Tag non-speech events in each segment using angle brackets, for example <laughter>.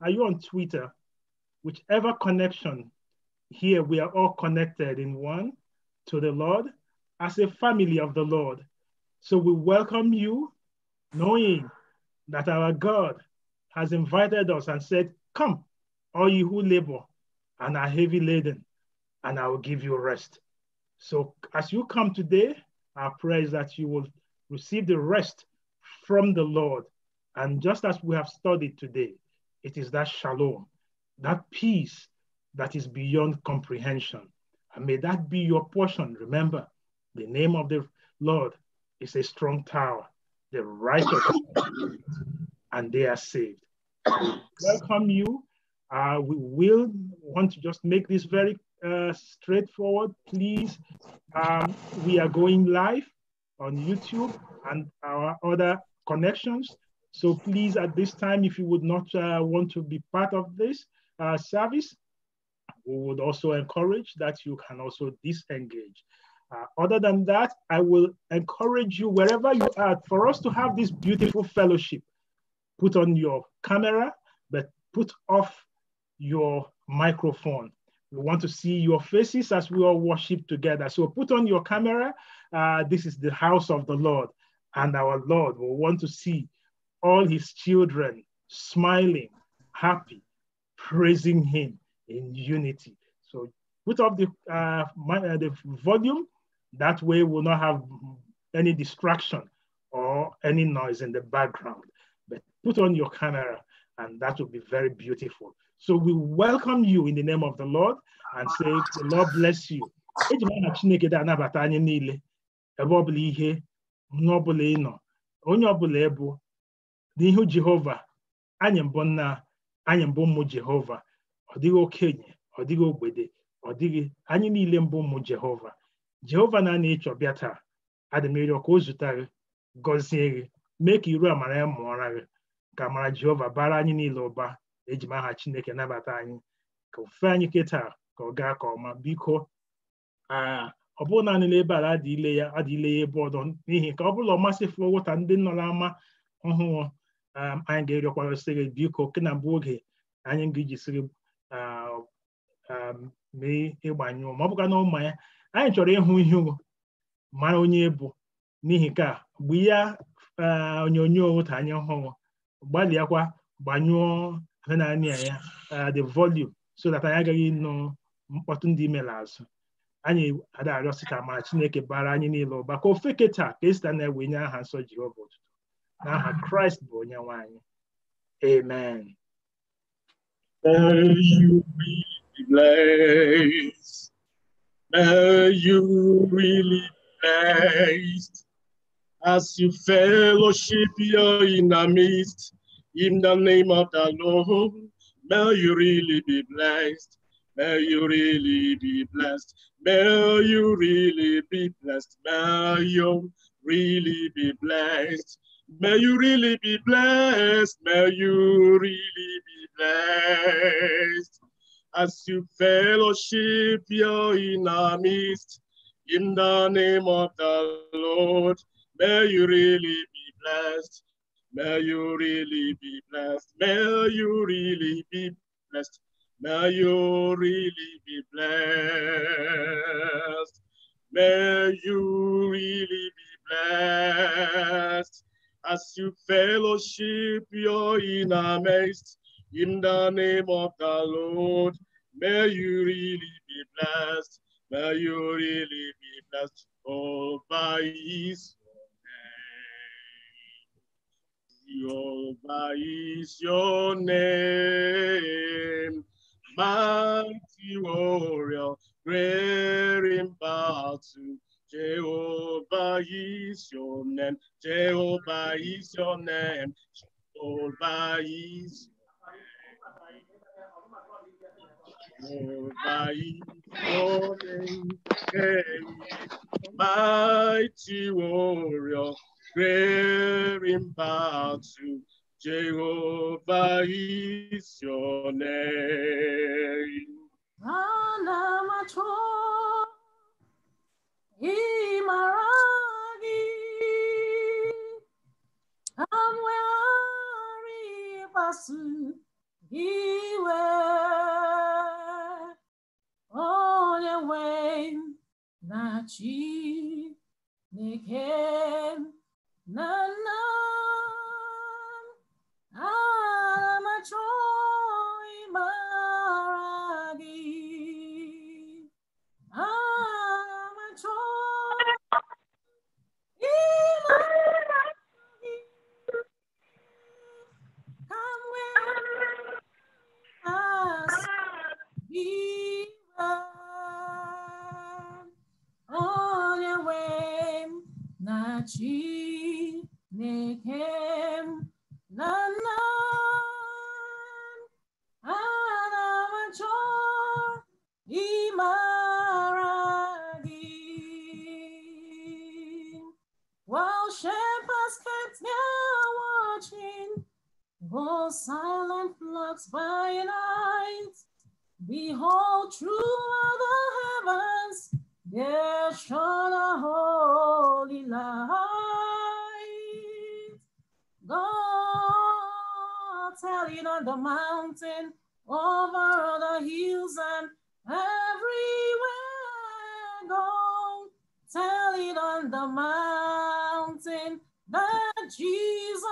are you on Twitter? Whichever connection here, we are all connected in one to the Lord as a family of the Lord. So we welcome you, knowing that our God has invited us and said, Come, all you who labor and are heavy laden, and I will give you rest. So as you come today, our prayer is that you will receive the rest from the Lord. And just as we have studied today, it is that shalom, that peace that is beyond comprehension. And may that be your portion. Remember, the name of the Lord is a strong tower. The righteous <coughs> and they are saved. welcome you. Uh, we will want to just make this very uh, straightforward. Please, um, we are going live on YouTube and our other connections. So please, at this time, if you would not uh, want to be part of this uh, service, we would also encourage that you can also disengage. Uh, other than that, I will encourage you wherever you are for us to have this beautiful fellowship. Put on your camera, but put off your microphone. We want to see your faces as we all worship together. So put on your camera. Uh, this is the house of the Lord, and our Lord will want to see all his children smiling, happy, praising him in unity. So put up the, uh, my, uh, the volume. That way we'll not have any distraction or any noise in the background. But put on your camera and that will be very beautiful. So we welcome you in the name of the Lord and say, the Lord bless you. ịnọ onye ọbụla n'ihu Jehova anyị mbụ nna anyị mbụ ụmụ Jehova ọ dịghị okenye ọ dịghị ogbede ọ dịghị anyị niile mbụ ụmụ Jehova Jehova na-ana ịchọ bịa taa adịmịrịọ ka o zụta gọzie gị mee ka iru amara ya mụọra gị ka amara Jehova bara anyị niile ụba ejimaha aha Chineke nabata anyị ka ofufe anyị kịta ka ọ gaa ka ọma biko ọ bụrụ naanị nebe ebe ala adịle ya ya ebe ọdọ n'ihi ka ọ bụla ọ masịfụ ụta ndị nọ n'ama ọhụụ anyị ga-erịọkwarasị gị biko ke na mbụ oge anyị ga-ejisiri mee ịgbanyụọ ma ọ bụkwa na ụma ya anyị chọrọ ịhụ ihu mara onye bụ n'ihi ka mgbe ya onyonyo ka anyị hụrụ gbalịakwa gbanyụọ naanị ya the volume so that anyị agaghị nụ mkpọtụ ndị mere azụ anyị ada arịọsị ka ma Chineke bara anyị niile ụba ka ofeketa ka esita na-ewe nye aha nsọ Jehova ụtụtụ n'aha Christ bụ onye nwanyị amen May you be blessed. May you really be blessed as you fellowship here in the midst. In the name of the Lord, may you really be blessed. May you really be blessed. May you really be blessed. May you really be blessed. May you really be blessed. May you really be blessed. As you fellowship your inner midst, in the name of the Lord, may you really be blessed. May you really be blessed. May you really be blessed. May you really be blessed. May you really be blessed as you fellowship your inner midst, in the name of the Lord, may you really be blessed. May you really be blessed all by His name. Jehovah is your name. Mighty warrior, great in battle. Jehovah is your name. Jehovah is your name. Jehovah is Jehovah name. Mighty warrior, great in battle. Jehovah is your name. Yimaragi Kamwari Basu Iwe Onye we na chi Neke na na Chineke na na silent flocks by night behold throughout the heavens there shone a holy light Tell it on the mountain, over the hills and everywhere go. Tell it on the mountain that Jesus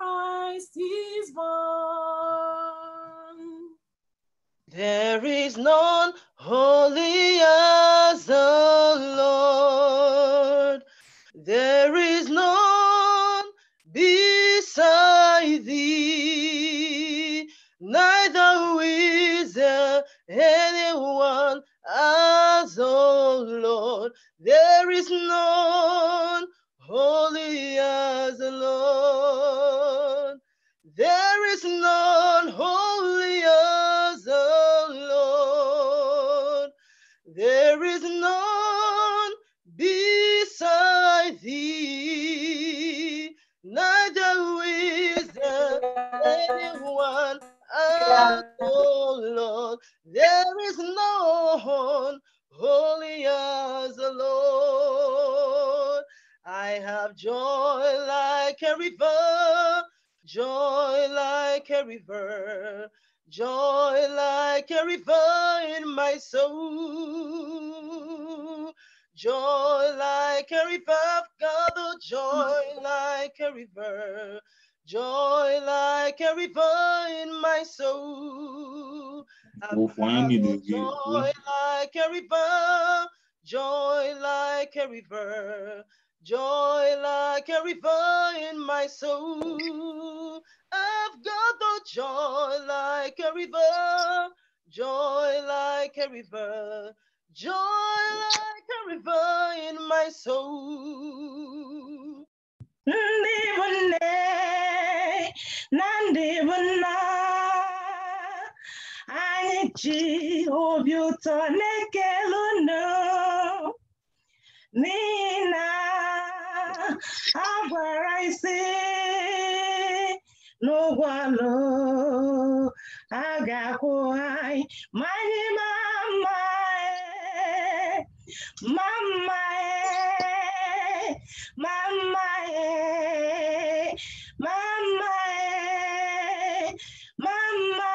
Christ is born. There is none holy as the Lord. There is none beside thee. anyone as, all Lord. There is none holy as the Lord. There is none holy as the Lord. There is none beside thee. Neither is there anyone oh Lord, there is no one holy as the Lord. I have joy like a river, joy like a river, joy like a river in my soul. Joy like a river, God, oh, joy like a river. Joy like a river in my soul. Vou flying this Joy like a river, joy like a river, joy like a river in my soul. I've got the oh, joy like a river, joy like a river, joy like a river in my soul ndibunne na ndibunna anyị ji obi ụtọ na-ekele unu n'ihi na agwara mama eh, mama eh, mama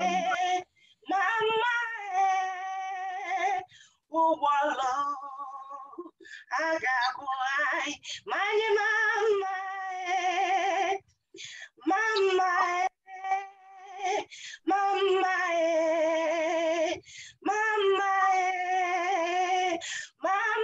eh, mama eh, got agagụ My manyị mama eh, mama eh, mama eh, mama eh, mama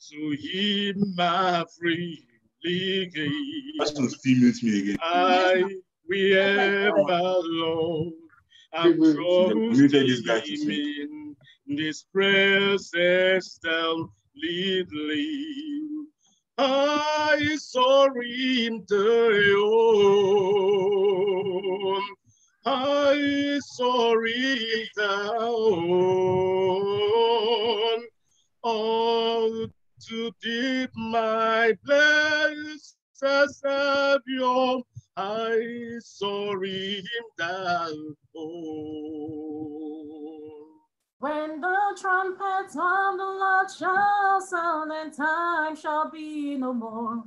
to him I freely gave. That's some females me again. I will ever, Lord, I'm trusting in this presence thou leading. I surrender you. I surrender all to deep, my blessed Savior, I sorry him down. When the trumpets of the Lord shall sound, and time shall be no more,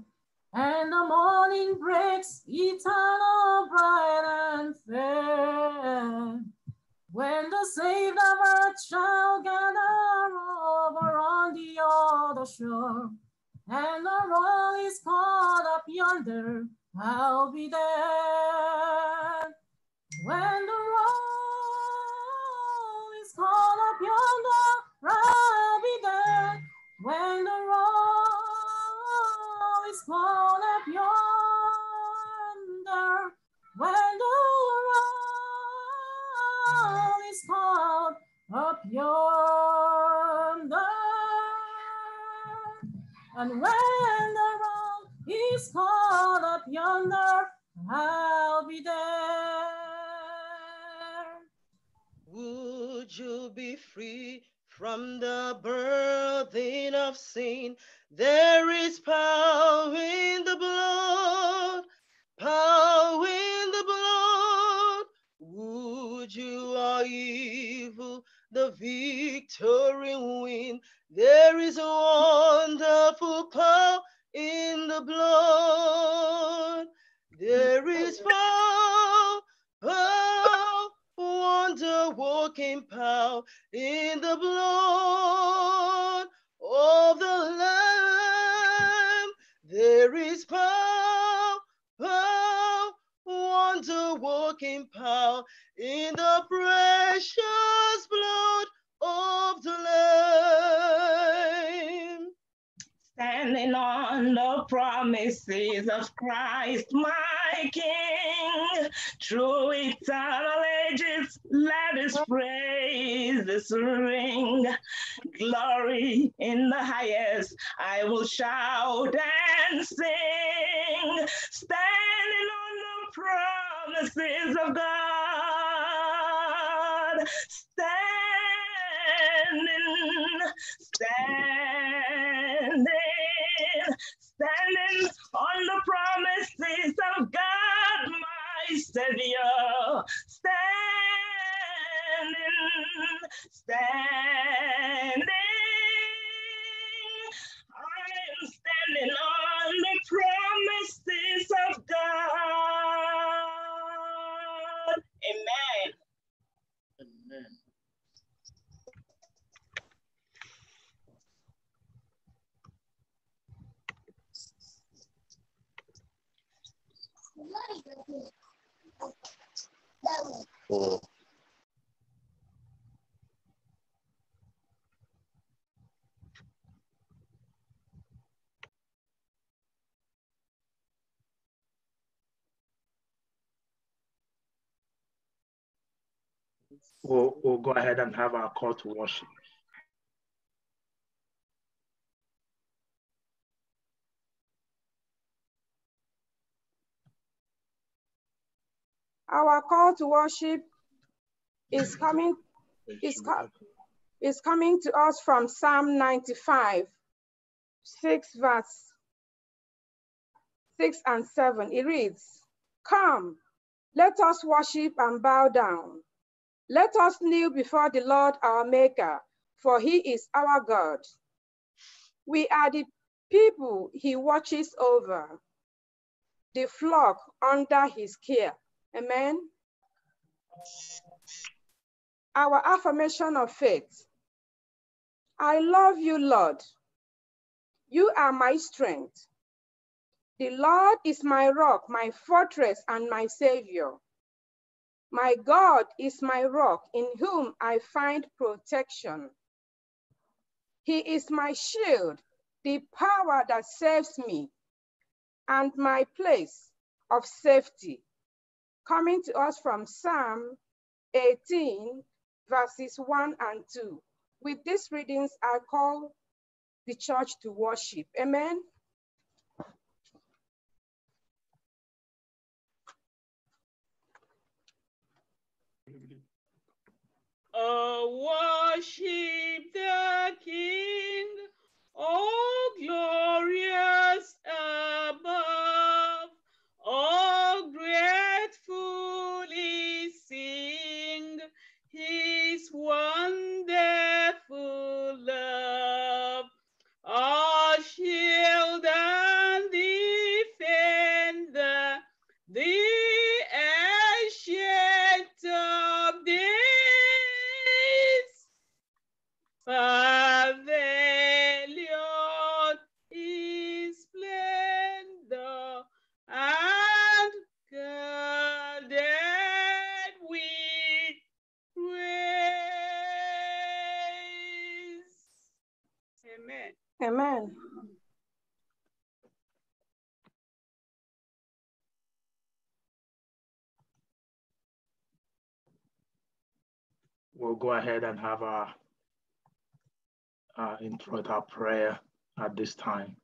and the morning breaks eternal, bright and fair. When the saved of earth shall gather over on the other shore, and the roll is caught up yonder, I'll be there. When the roll is caught up yonder, I'll be there. When the roll is caught up yonder, called up yonder. And when the roll is called up yonder, I'll be there. Would you be free from the burden of sin? There is power in the blood, power in the blood for evil, the victory win. There is a wonderful power in the blood. There is power, power, wonder working power in the blood of the Lamb. There is power, power, wonder working power in the precious blood of the Lamb. Standing on the promises of Christ, my King, through eternal ages, let us praise this ring. Glory in the highest, I will shout and sing. Standing on the promises of God. God, standing, standing, standing on the promises of God, my Savior, standing, standing. I am standing on the promises of God. We'll, we'll go ahead and have our call to worship. Our call to worship is coming, is, co is coming to us from Psalm 95, 6 verse 6 and 7. It reads, Come, let us worship and bow down. Let us kneel before the Lord our Maker, for he is our God. We are the people he watches over, the flock under his care. Amen. Our affirmation of faith. I love you, Lord. You are my strength. The Lord is my rock, my fortress, and my savior. My God is my rock in whom I find protection. He is my shield, the power that saves me, and my place of safety coming to us from Psalm 18, verses 1 and 2. With these readings, I call the church to worship. Amen. Oh, worship the King, oh glorious above, oh great sing his wonderful love. go ahead and have our, our intro to our prayer at this time.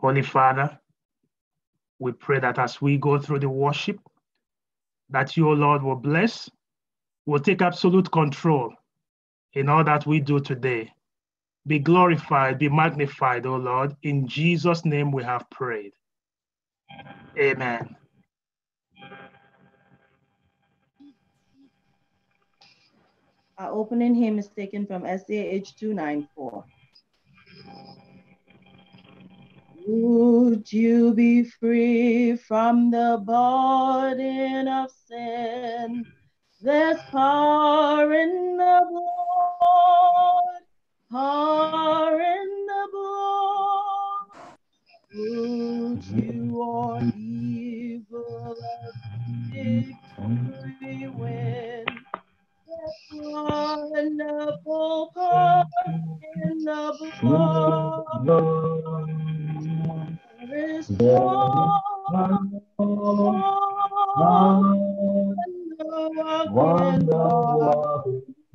Holy Father, we pray that as we go through the worship, that your Lord will bless, will take absolute control in all that we do today. Be glorified, be magnified, O Lord. In Jesus' name we have prayed. Amen. Our opening hymn is taken from SAH 294. Would you be free from the burden of sin? There's power in the blood are in the blood. Would you or evil victory win? Wonderful part in the blood. There is one.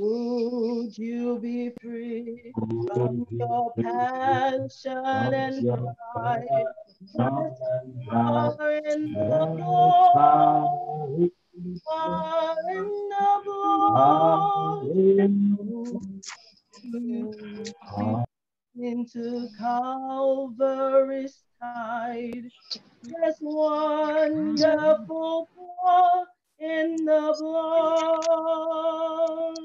Would you be free from your passion and pride? Far in the blood, far in the blood. into Calvary's tide. This wonderful war in the blood.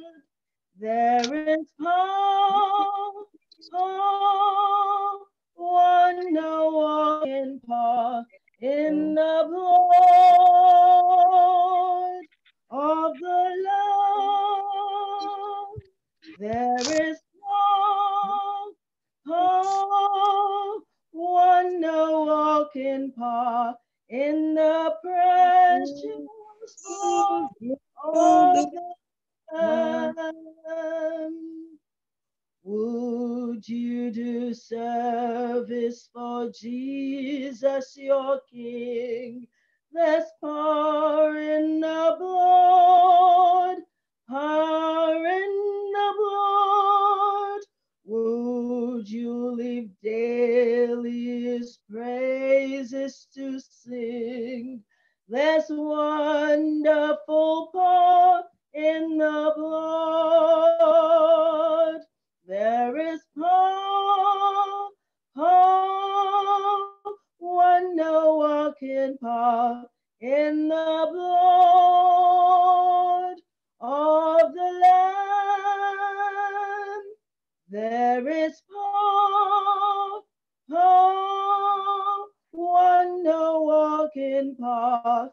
There is hope, hope, one now walking path in mm. the blood of the Lord. There is hope, hope, one walking path in the precious mm. blood of the um, would you do service for Jesus, your King? Let's pour in the blood, pour in the blood. Would you live daily his praises to sing? This wonderful part in the blood. There is hope, power when no one can part in the blood of the Lamb. There is hope, power when no one can part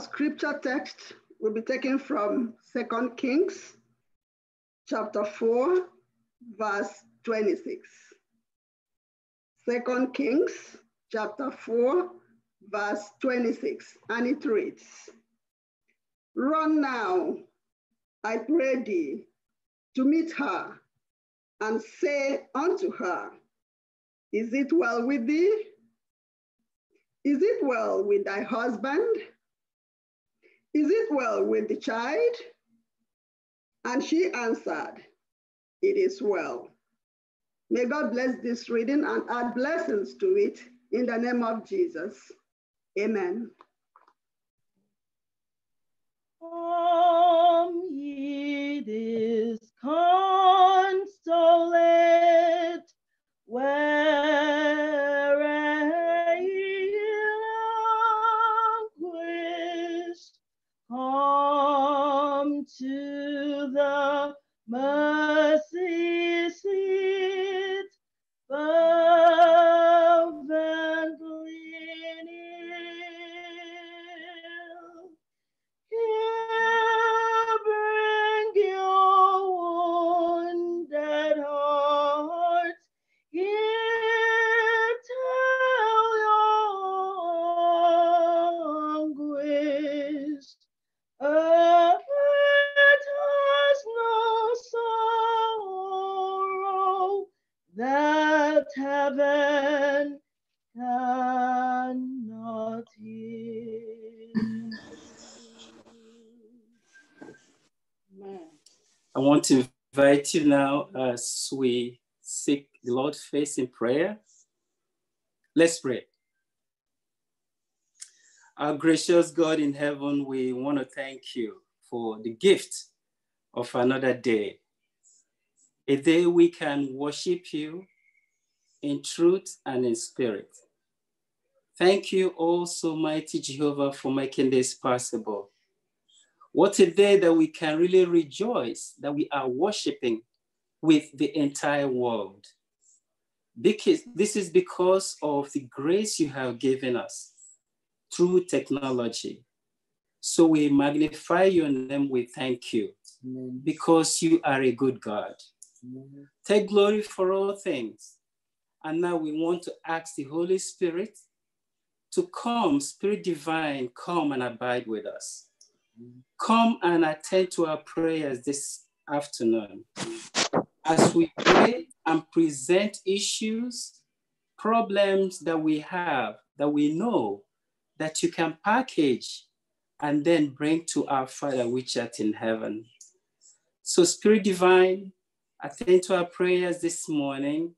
scripture text will be taken from Second Kings chapter 4, verse 26. Second Kings chapter 4, verse 26, and it reads, Run now, I pray thee, to meet her, and say unto her, Is it well with thee? Is it well with thy husband? Is it well with the child? And she answered, It is well. May God bless this reading and add blessings to it in the name of Jesus. Amen. Come ye this consolate. where. Mãe heaven cannot hear. I want to invite you now as we seek the Lord's face in prayer. Let's pray. Our gracious God in heaven, we want to thank you for the gift of another day, a day we can worship you, in truth and in spirit. Thank you also, mighty Jehovah, for making this possible. What a day that we can really rejoice that we are worshiping with the entire world. Because this is because of the grace you have given us through technology. So we magnify your name, we thank you because you are a good God. Take glory for all things and now we want to ask the Holy Spirit to come, Spirit Divine, come and abide with us. Come and attend to our prayers this afternoon. As we pray and present issues, problems that we have, that we know, that you can package and then bring to our Father which art in heaven. So, Spirit Divine, attend to our prayers this morning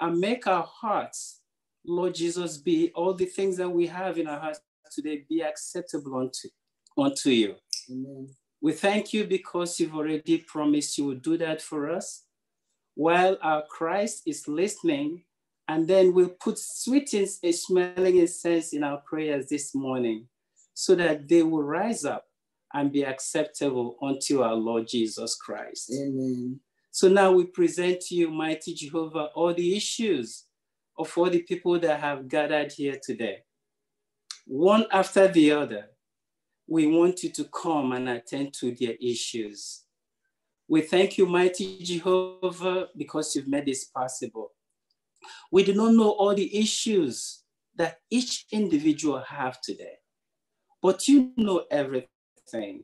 and make our hearts, Lord Jesus, be all the things that we have in our hearts today be acceptable unto, unto you. Amen. We thank you because you've already promised you will do that for us while our Christ is listening. And then we'll put sweet and smelling incense in our prayers this morning so that they will rise up and be acceptable unto our Lord Jesus Christ. Amen. So now we present to you, mighty Jehovah, all the issues of all the people that have gathered here today. One after the other, we want you to come and attend to their issues. We thank you, mighty Jehovah, because you've made this possible. We do not know all the issues that each individual have today, but you know everything.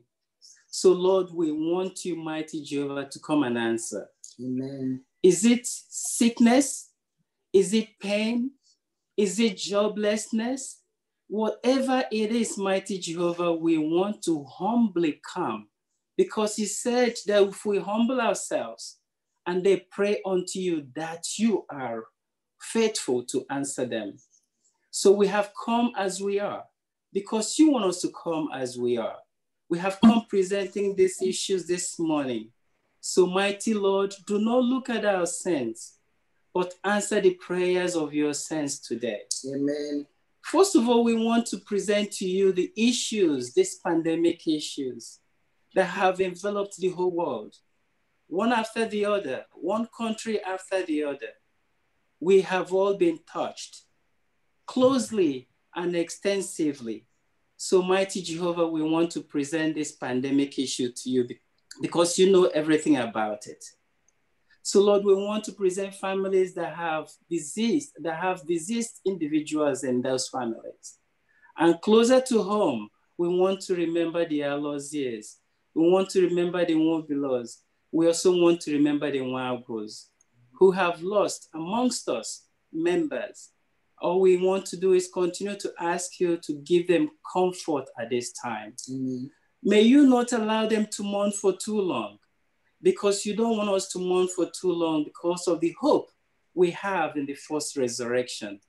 So, Lord, we want you, mighty Jehovah, to come and answer. Amen. Is it sickness? Is it pain? Is it joblessness? Whatever it is, mighty Jehovah, we want to humbly come because He said that if we humble ourselves and they pray unto you, that you are faithful to answer them. So we have come as we are because you want us to come as we are. We have come presenting these issues this morning. So, mighty Lord, do not look at our sins, but answer the prayers of your saints today. Amen. First of all, we want to present to you the issues, these pandemic issues that have enveloped the whole world, one after the other, one country after the other. We have all been touched closely and extensively. So mighty Jehovah, we want to present this pandemic issue to you because you know everything about it. So Lord, we want to present families that have diseased, that have diseased individuals in those families. And closer to home, we want to remember the lost years. We want to remember the one beloved. We also want to remember the one who have lost amongst us members, all we want to do is continue to ask you to give them comfort at this time. Mm-hmm. May you not allow them to mourn for too long because you don't want us to mourn for too long because of the hope we have in the first resurrection.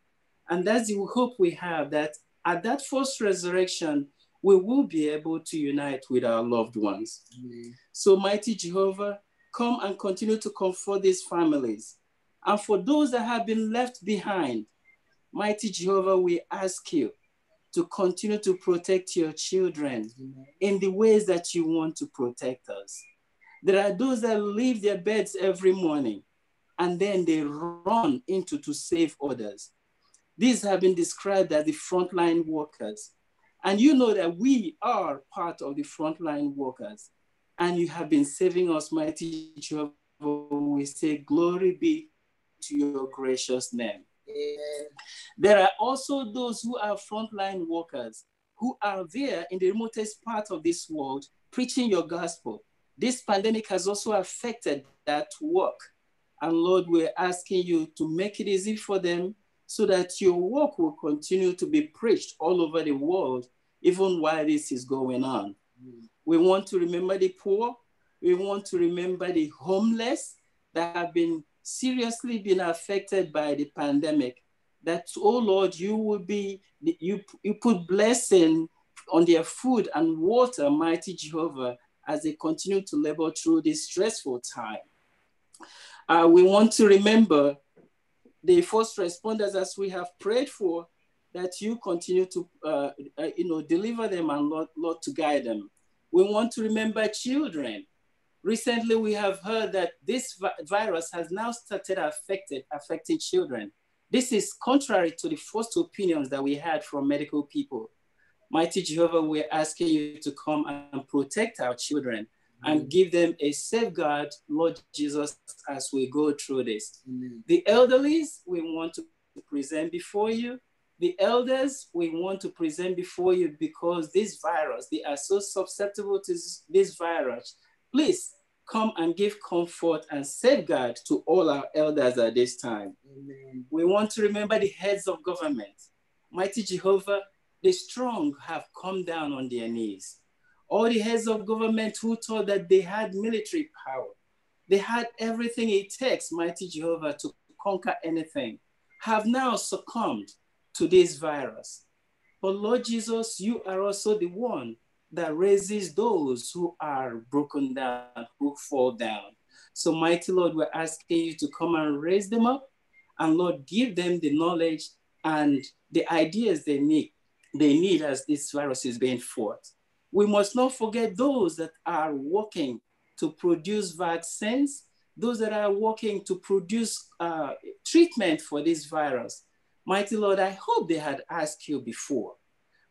And that's the hope we have that at that first resurrection, we will be able to unite with our loved ones. Mm-hmm. So, mighty Jehovah, come and continue to comfort these families. And for those that have been left behind, Mighty Jehovah, we ask you to continue to protect your children in the ways that you want to protect us. There are those that leave their beds every morning and then they run into to save others. These have been described as the frontline workers. And you know that we are part of the frontline workers. And you have been saving us, mighty Jehovah. We say, Glory be to your gracious name. There are also those who are frontline workers who are there in the remotest part of this world preaching your gospel. This pandemic has also affected that work. And Lord, we're asking you to make it easy for them so that your work will continue to be preached all over the world, even while this is going on. We want to remember the poor. We want to remember the homeless that have been seriously been affected by the pandemic, that, oh Lord, you will be, you, you put blessing on their food and water, mighty Jehovah, as they continue to labor through this stressful time. Uh, we want to remember the first responders as we have prayed for, that you continue to, uh, uh, you know, deliver them and Lord, Lord to guide them. We want to remember children Recently, we have heard that this vi virus has now started affected, affecting children. This is contrary to the first opinions that we had from medical people. Mighty Jehovah, we're asking you to come and protect our children and give them a safeguard, Lord Jesus, as we go through this. The elderly, we want to present before you. The elders, we want to present before you because this virus, they are so susceptible to this virus. Please come and give comfort and safeguard to all our elders at this time. Amen. We want to remember the heads of government. Mighty Jehovah, the strong have come down on their knees. All the heads of government who thought that they had military power, they had everything it takes, mighty Jehovah, to conquer anything, have now succumbed to this virus. But Lord Jesus, you are also the one that raises those who are broken down, who fall down. So, mighty Lord, we're asking you to come and raise them up and Lord, give them the knowledge and the ideas they need, they need as this virus is being fought. We must not forget those that are working to produce vaccines, those that are working to produce uh, treatment for this virus. Mighty Lord, I hope they had asked you before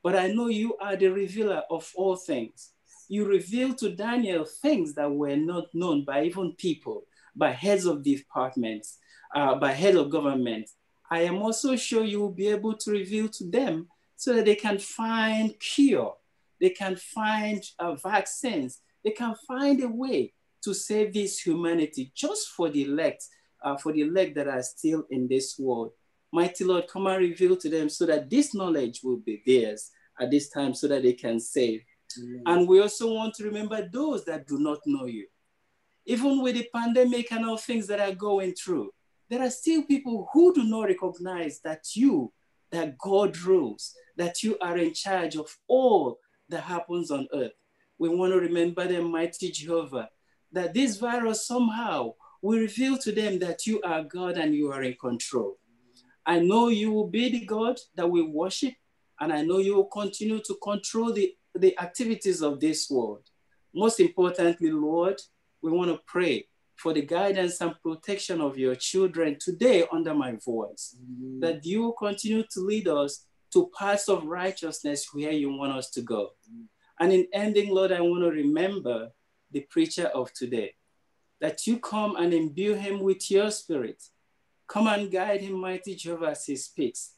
but I know you are the revealer of all things. You revealed to Daniel things that were not known by even people, by heads of departments, uh, by head of government. I am also sure you will be able to reveal to them so that they can find cure, they can find uh, vaccines, they can find a way to save this humanity just for the elect, uh, for the elect that are still in this world. Mighty Lord, come and reveal to them so that this knowledge will be theirs at this time so that they can save. And we also want to remember those that do not know you. Even with the pandemic and all things that are going through, there are still people who do not recognize that you, that God rules, that you are in charge of all that happens on earth. We want to remember the mighty Jehovah, that this virus somehow will reveal to them that you are God and you are in control. I know you will be the God that we worship and I know you will continue to control the, the activities of this world. Most importantly, Lord, we want to pray for the guidance and protection of your children today under my voice, mm. that you will continue to lead us to paths of righteousness where you want us to go. Mm. And in ending, Lord, I want to remember the preacher of today, that you come and imbue him with your spirit. Come and guide him, mighty Jehovah, as he speaks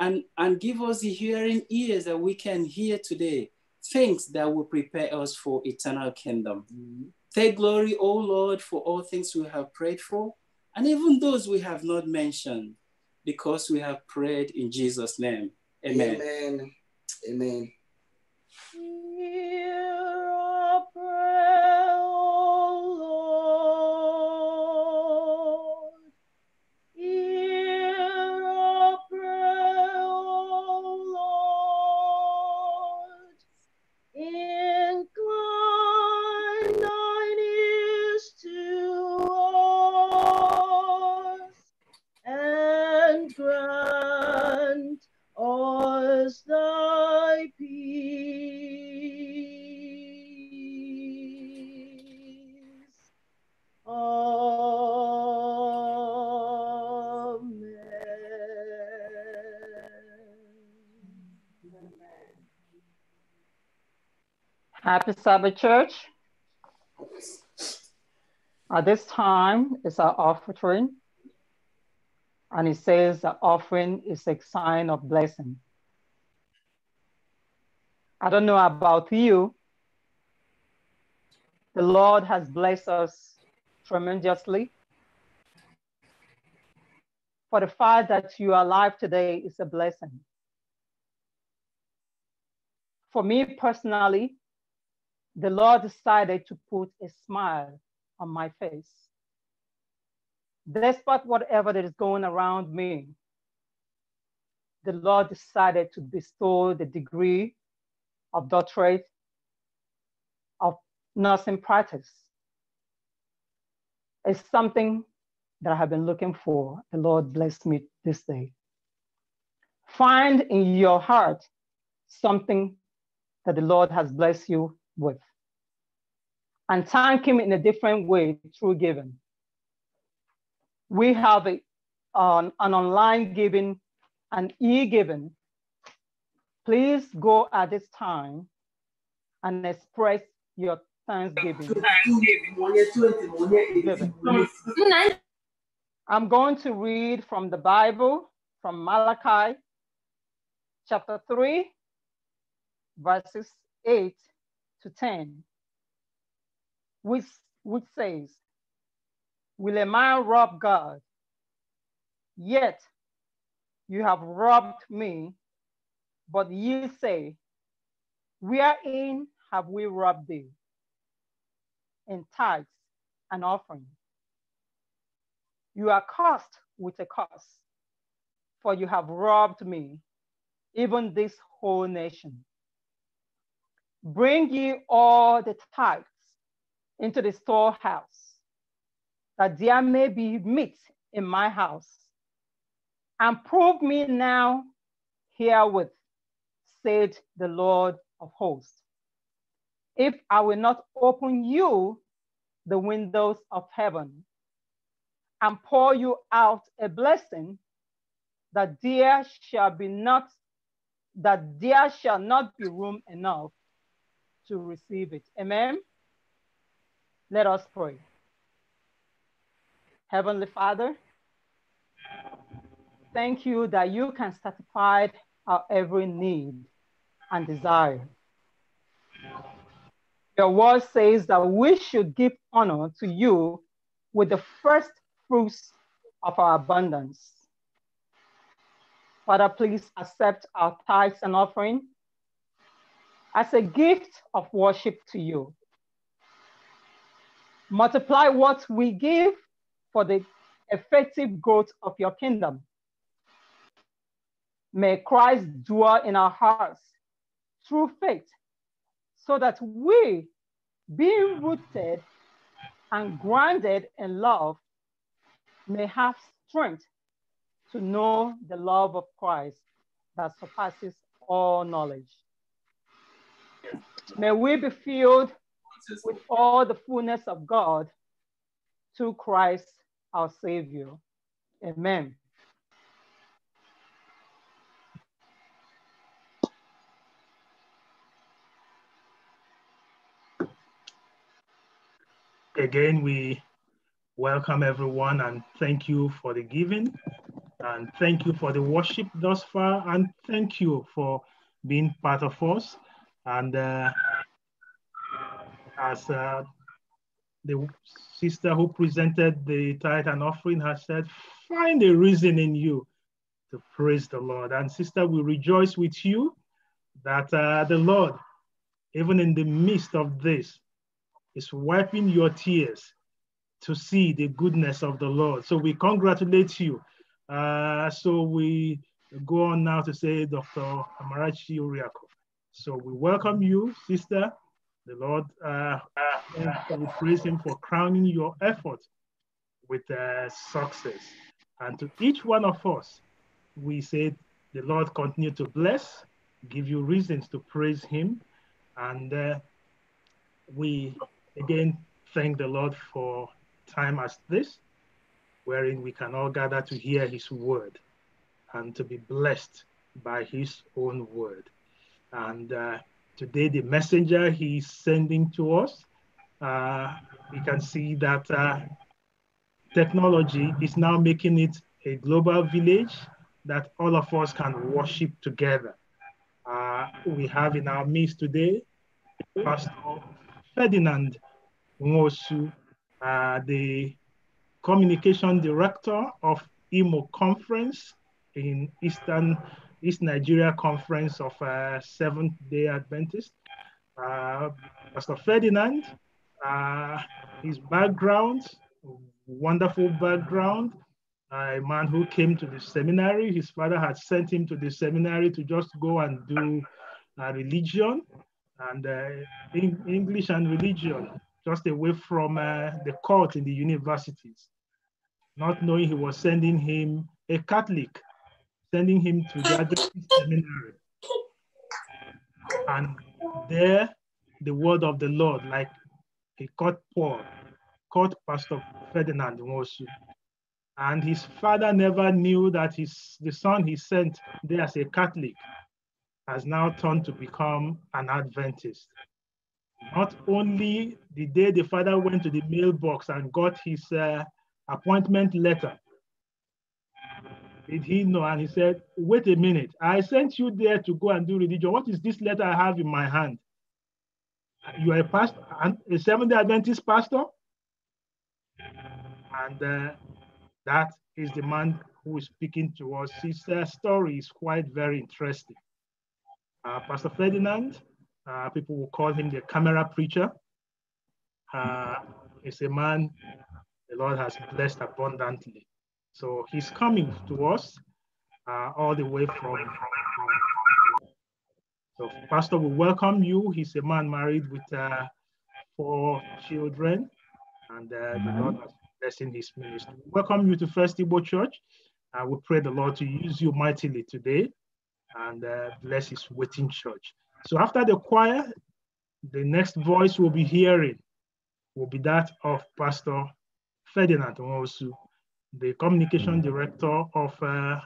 and, and give us the hearing ears that we can hear today things that will prepare us for eternal kingdom. Mm-hmm. Take glory, O Lord, for all things we have prayed for, and even those we have not mentioned, because we have prayed in Jesus' name. Amen. Amen. Amen. Happy Sabbath, church. At this time it's our offering. And it says the offering is a sign of blessing. I don't know about you. The Lord has blessed us tremendously. For the fact that you are alive today is a blessing. For me personally, the Lord decided to put a smile on my face. Despite whatever that is going around me, the Lord decided to bestow the degree of doctorate of nursing practice. It's something that I have been looking for. The Lord bless me this day. Find in your heart something that the Lord has blessed you with and thank him in a different way through giving. We have a, an, an online giving an e-giving. Please go at this time and express your thanksgiving. I'm going to read from the Bible, from Malachi chapter 3, verses 8 to 10 which, which says, Will a man rob God? Yet you have robbed me. But ye say, Wherein have we robbed thee? In tithes and offering. You are cursed with a curse, for you have robbed me, even this whole nation. Bring ye all the tithes into the storehouse, that there may be meat in my house. And prove me now herewith, said the Lord of hosts, if I will not open you the windows of heaven and pour you out a blessing that there shall be not that there shall not be room enough to receive it. Amen. Let us pray. Heavenly Father, thank you that you can satisfy our every need and desire. Your word says that we should give honor to you with the first fruits of our abundance. Father, please accept our tithes and offering as a gift of worship to you multiply what we give for the effective growth of your kingdom. May Christ dwell in our hearts through faith, so that we, being rooted and grounded in love, may have strength to know the love of Christ that surpasses all knowledge. May we be filled with all the fullness of God through Christ our Savior. Amen. Again, we welcome everyone and thank you for the giving and thank you for the worship thus far and thank you for being part of us and uh, as uh, the sister who presented the tithe and offering has said, find a reason in you to praise the Lord. And sister, we rejoice with you that uh, the Lord, even in the midst of this, is wiping your tears to see the goodness of the Lord. So we congratulate you. Uh, so we go on now to say Dr. Amarachi Uriako. So we welcome you, sister. The Lord uh, uh, uh, we praise Him for crowning your effort with uh, success. And to each one of us, we say, the Lord continue to bless, give you reasons to praise Him. And uh, we again thank the Lord for time as this, wherein we can all gather to hear His word and to be blessed by His own word. And uh, Today, the messenger he's sending to us, uh, we can see that uh, technology is now making it a global village that all of us can worship together. Uh, we have in our midst today Pastor Ferdinand Mosu, uh, the communication director of EMO conference in Eastern East Nigeria Conference of uh, Seventh Day Adventists. Uh, Pastor Ferdinand, uh, his background, wonderful background, uh, a man who came to the seminary. His father had sent him to the seminary to just go and do uh, religion and in uh, English and religion, just away from the court in the universities, not knowing he was sending him a Catholic sending him to the Adventist seminary. And there, the word of the Lord, like he caught Paul, caught Pastor Ferdinand Nwosu. And his father never knew that his, the son he sent there as a Catholic has now turned to become an Adventist. Not only the day the father went to the mailbox and got his uh, appointment letter, did he know? And he said, Wait a minute. I sent you there to go and do religion. What is this letter I have in my hand? You are a pastor, a Seventh day Adventist pastor? And uh, that is the man who is speaking to us. His uh, story is quite very interesting. Uh, pastor Ferdinand, uh, people will call him the camera preacher, is uh, a man the Lord has blessed abundantly. So he's coming to us uh, all the way from. So Pastor, we welcome you. He's a man married with uh, four children, and uh, the Lord has blessing his ministry. We welcome you to First Igbo Church. Uh, we pray the Lord to use you mightily today and uh, bless his waiting church. So after the choir, the next voice we'll be hearing will be that of Pastor Ferdinand Onwosu the communication director of uh,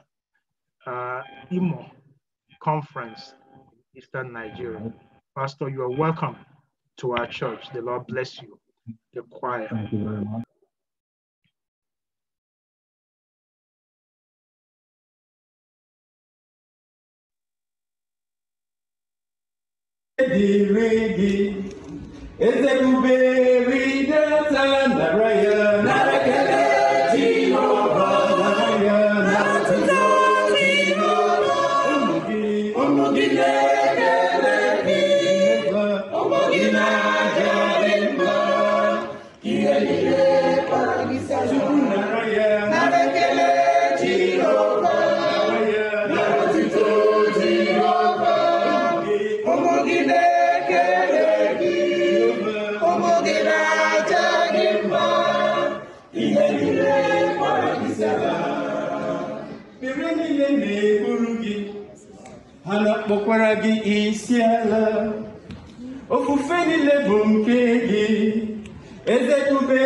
uh, IMO conference, Eastern Nigeria. Pastor, you are welcome to our church. The Lord bless you, the choir. Thank you very much. Ready, ready, gị isi ala ofufe niile bụ nke gị eze kube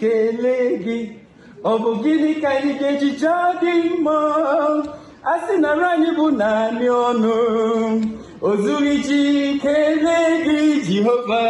kelee gị ọ bụ gịnị ka anyị ga-eji jaa gị mma a sị anyị bụ naanị ọnụ o zuru iji kelee gị Jehova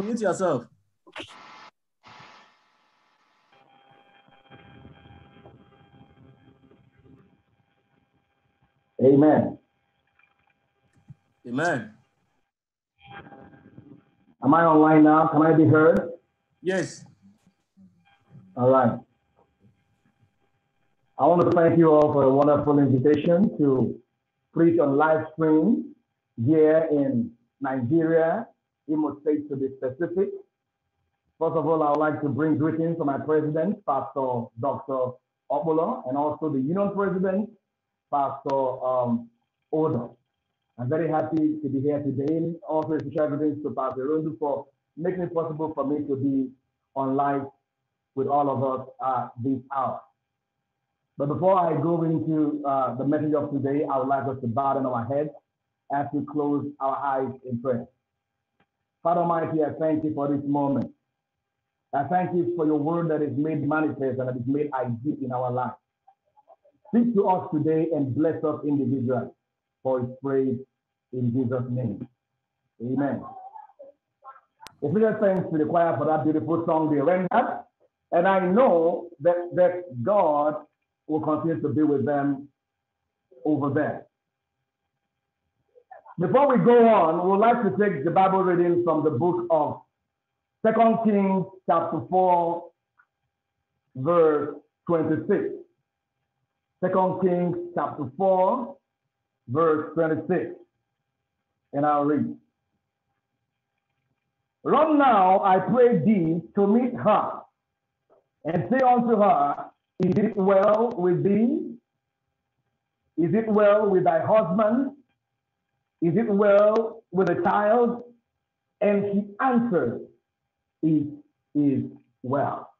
unmute yourself. Amen. Amen. Am I online now? Can I be heard? Yes. All right. I want to thank you all for the wonderful invitation to preach on live stream here in Nigeria State to be specific. First of all, I would like to bring greetings to my president, Pastor Dr. Obola, and also the union president, Pastor um, Odo. I'm very happy to be here today. Also, special greetings to Pastor Rundu for making it possible for me to be on live with all of us at this hour. But before I go into uh, the message of today, I would like us to bow down our heads as we close our eyes in prayer. Father Almighty, I thank you for this moment. I thank you for your word that is made manifest and that is made ideal in our life. Speak to us today and bless us individually for his praise in Jesus' name. Amen. If we just thanks to the choir for that beautiful song they rendered, and I know that, that God will continue to be with them over there. Before we go on, we would like to take the Bible reading from the book of Second Kings, chapter 4, verse 26. Second Kings, chapter 4, verse 26. And I'll read. Run now, I pray thee, to meet her, and say unto her, Is it well with thee? Is it well with thy husband? Is it well with a child? And he answered, It is well.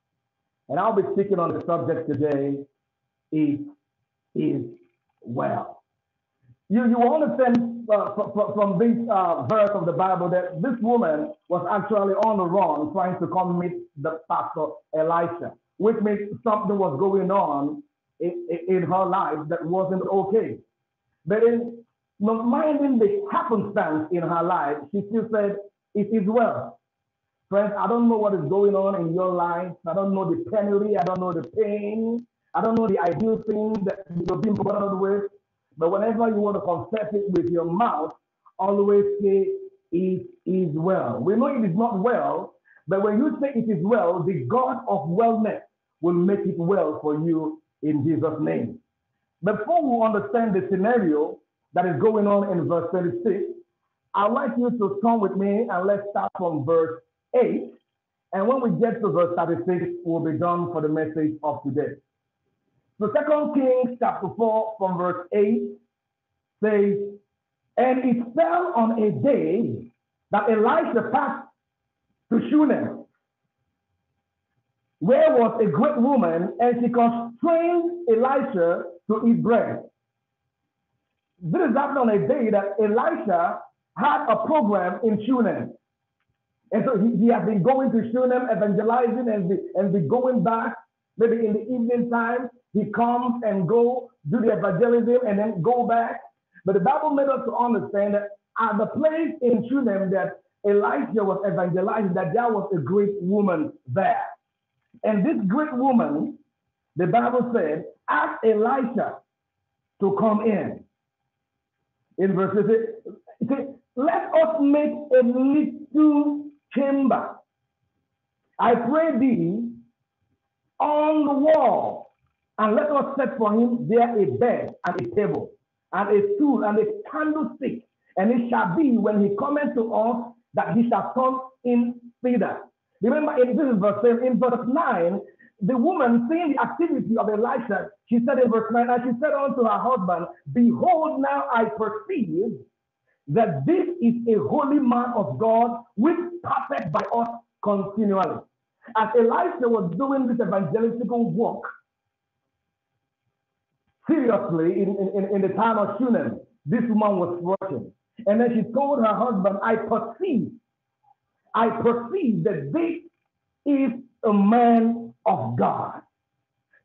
And I'll be speaking on the subject today, It is well. You, you understand uh, from, from this uh, verse of the Bible that this woman was actually on the run trying to come meet the pastor Elisha, which means something was going on in, in her life that wasn't okay. But in not minding the happenstance in her life, she still said, It is well. Friends, I don't know what is going on in your life. I don't know the penury. I don't know the pain. I don't know the ideal thing that you're being bothered with. But whenever you want to confess it with your mouth, always say, It is well. We know it is not well, but when you say it is well, the God of wellness will make it well for you in Jesus' name. Before we understand the scenario, that is going on in verse 36, I'd like you to come with me and let's start from verse 8. And when we get to verse 36, we'll be done for the message of today. So Second Kings chapter 4 from verse 8 says, And it fell on a day that Elisha passed to Shunem, where was a great woman, and she constrained Elisha to eat bread. This is happened on a day that Elisha had a program in Shunem. And so he, he had been going to Shunem, evangelizing, and be, and be going back. Maybe in the evening time, he comes and go do the evangelism and then go back. But the Bible made us to understand that at the place in Shunem that Elisha was evangelizing, that there was a great woman there. And this great woman, the Bible said, asked Elisha to come in in verse 6, it says, Let us make a little chamber, I pray thee, on the wall, and let us set for him there a bed and a table, and a stool and a candlestick. And it shall be when he cometh to us that he shall come in thither. Remember, in, this is verse in verse 9, the woman, seeing the activity of Elisha, she said in verse 9, and she said unto her husband, Behold, now I perceive that this is a holy man of God, which perfect by us continually. As Elisha was doing this evangelistical work, seriously, in, in, in the time of Shunem, this woman was working. And then she told her husband, I perceive, I perceive that this is a man of God.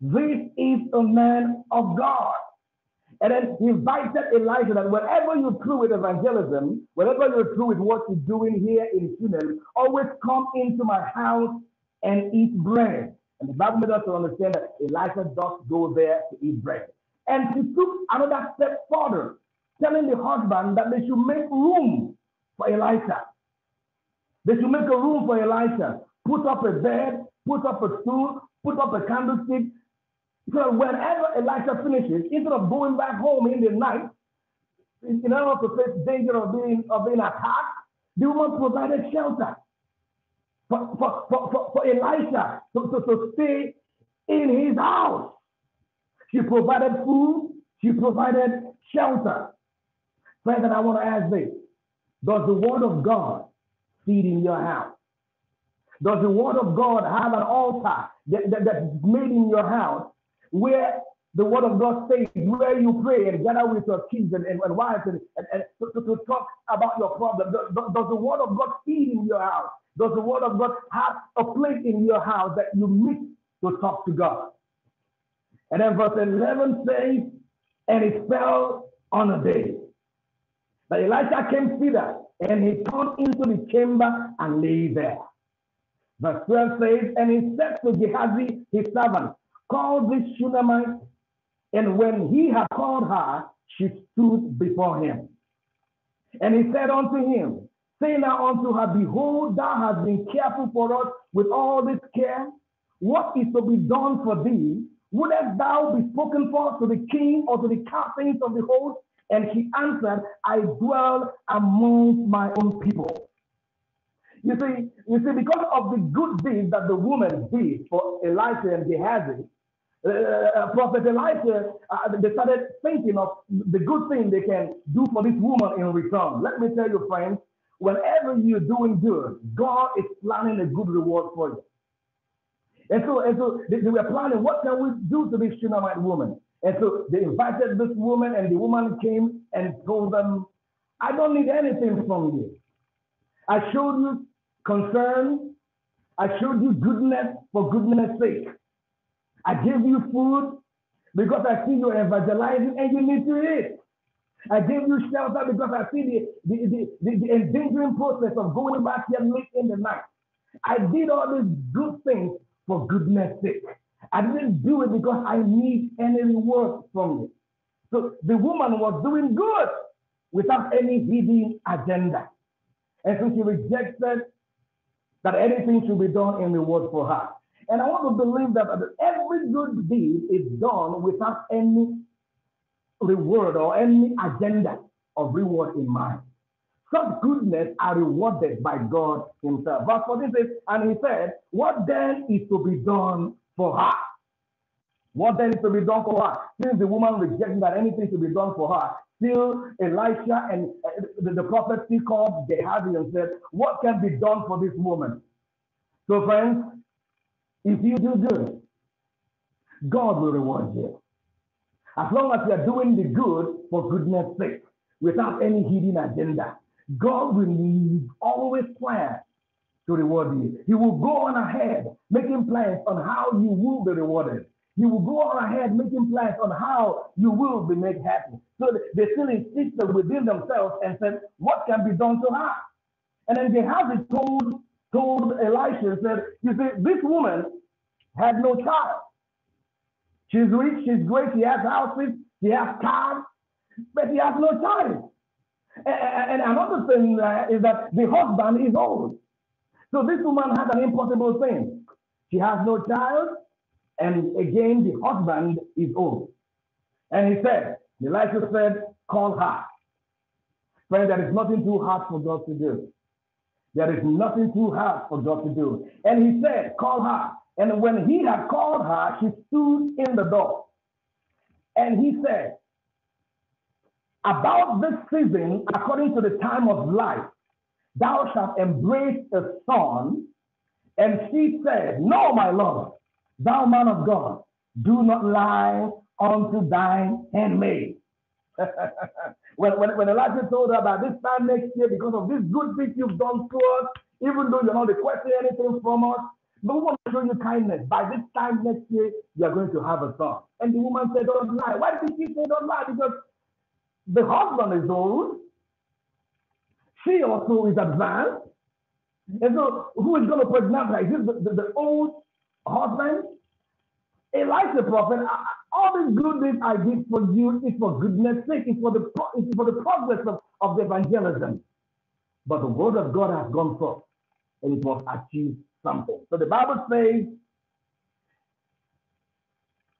This is a man of God. And then he invited Elijah that whatever you're through with evangelism, whatever you're through with what you're doing here in Shunem, always come into my house and eat bread. And the Bible made us to understand that Elijah does go there to eat bread. And he took another step further, telling the husband that they should make room for Elijah. They should make a room for Elijah, put up a bed, put up a stool, put up a candlestick. So whenever Elisha finishes, instead of going back home in the night, in order to face danger of being of being attacked, the woman provided shelter for, for, for, for, Elisha to, to, to stay in his house. She provided food, she provided shelter. Friend, that I want to ask this Does the word of God feed in your house? Does the word of God have an altar that, that, that's made in your house where the word of God says, where you pray and gather with your kids and, and, and wives and, and, and to, to, talk about your problem? Does, does the word of God feed in your house? Does the word of God have a place in your house that you meet to talk to God? And then verse 11 says, and it fell on a day. But Elijah came thither, and he turned into the chamber and lay there. Verse 12 says, And he said to Gehazi, his servant, Call this Shunammite. And when he had called her, she stood before him. And he said unto him, Say now unto her, Behold, thou hast been careful for us with all this care. What is to be done for thee? Wouldest thou be spoken for to the king or to the captains of the host? And he answered, I dwell among my own people. You see, you see, because of the good deeds that the woman did for Elisha and Gehazi, uh, uh, Prophet Elisha, uh, they started thinking of the good thing they can do for this woman in return. Let me tell you, friends, whenever you're doing good, God is planning a good reward for you. And so, and so they, they were planning, what can we do to this Shunammite woman? And so they invited this woman, and the woman came and told them, I don't need anything from you. I showed you concern. I showed you goodness for goodness sake. I gave you food because I see you evangelizing and you need to eat. I gave you shelter because I see the, the, the, the, the endangering process of going back here late in the night. I did all these good things for goodness sake. I didn't do it because I need any reward from you. So the woman was doing good without any hidden agenda. And so she rejected that anything should be done in the word for her. And I want to believe that every good deed is done without any reward or any agenda of reward in mind. Such goodness are rewarded by God Himself. Verse 14 says, And He said, What then is to be done for her? What then is to be done for her? Since the woman rejecting that anything should be done for her, Still, Elisha and uh, the, the prophet still called Gehazi and said, What can be done for this woman? So, friends, if you do good, God will reward you. As long as you are doing the good for goodness sake, without any hidden agenda, God will always plan to reward you. He will go on ahead, making plans on how you will be rewarded. You will go on ahead making plans on how you will be made happy. So they still insisted within themselves and said, What can be done to her? And then Gehazi told, told Elisha said, You see, this woman had no child. She's rich, she's great, she has houses, she has cars, but she has no child. And, and another thing uh, is that the husband is old. So this woman had an impossible thing. She has no child, and again, the husband is old. And he said, Elisha said, call her. Friend, there is nothing too hard for God to do. There is nothing too hard for God to do. And he said, call her. And when he had called her, she stood in the door. And he said, about this season, according to the time of life, thou shalt embrace a son. And she said, No, my lord, Thou man of God, do not lie unto thine handmaid. <laughs> when, when, when Elijah told her about this time next year, because of this good thing you've done to us, even though you're not requesting anything from us, but we want to show you kindness. By this time next year, you're going to have a son. And the woman said, Don't lie. Why did she say don't lie? Because the husband is old. She also is advanced. And so, who is going to pregnant her? Is this the, the, the old husband, Elijah the prophet, all the good things I did for you is for goodness sake, it's for the, it's for the progress of, of the evangelism. But the word of God has gone forth and it must achieve something. So the Bible says,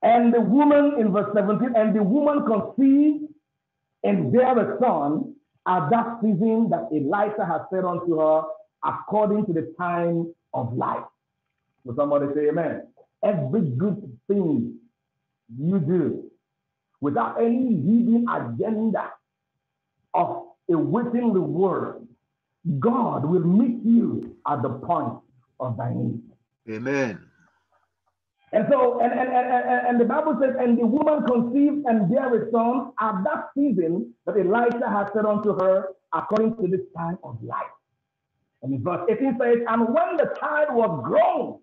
and the woman in verse 17, and the woman conceived and bare a son at that season that Elijah had said unto her, according to the time of life. Will somebody say amen? Every good thing you do without any hidden agenda of a waiting reward, God will meet you at the point of thy need. Amen. And so, and, and, and, and the Bible says, and the woman conceived and bare a son at that season that Elijah had said unto her, according to this time of life. And verse 18 says, and when the child was grown,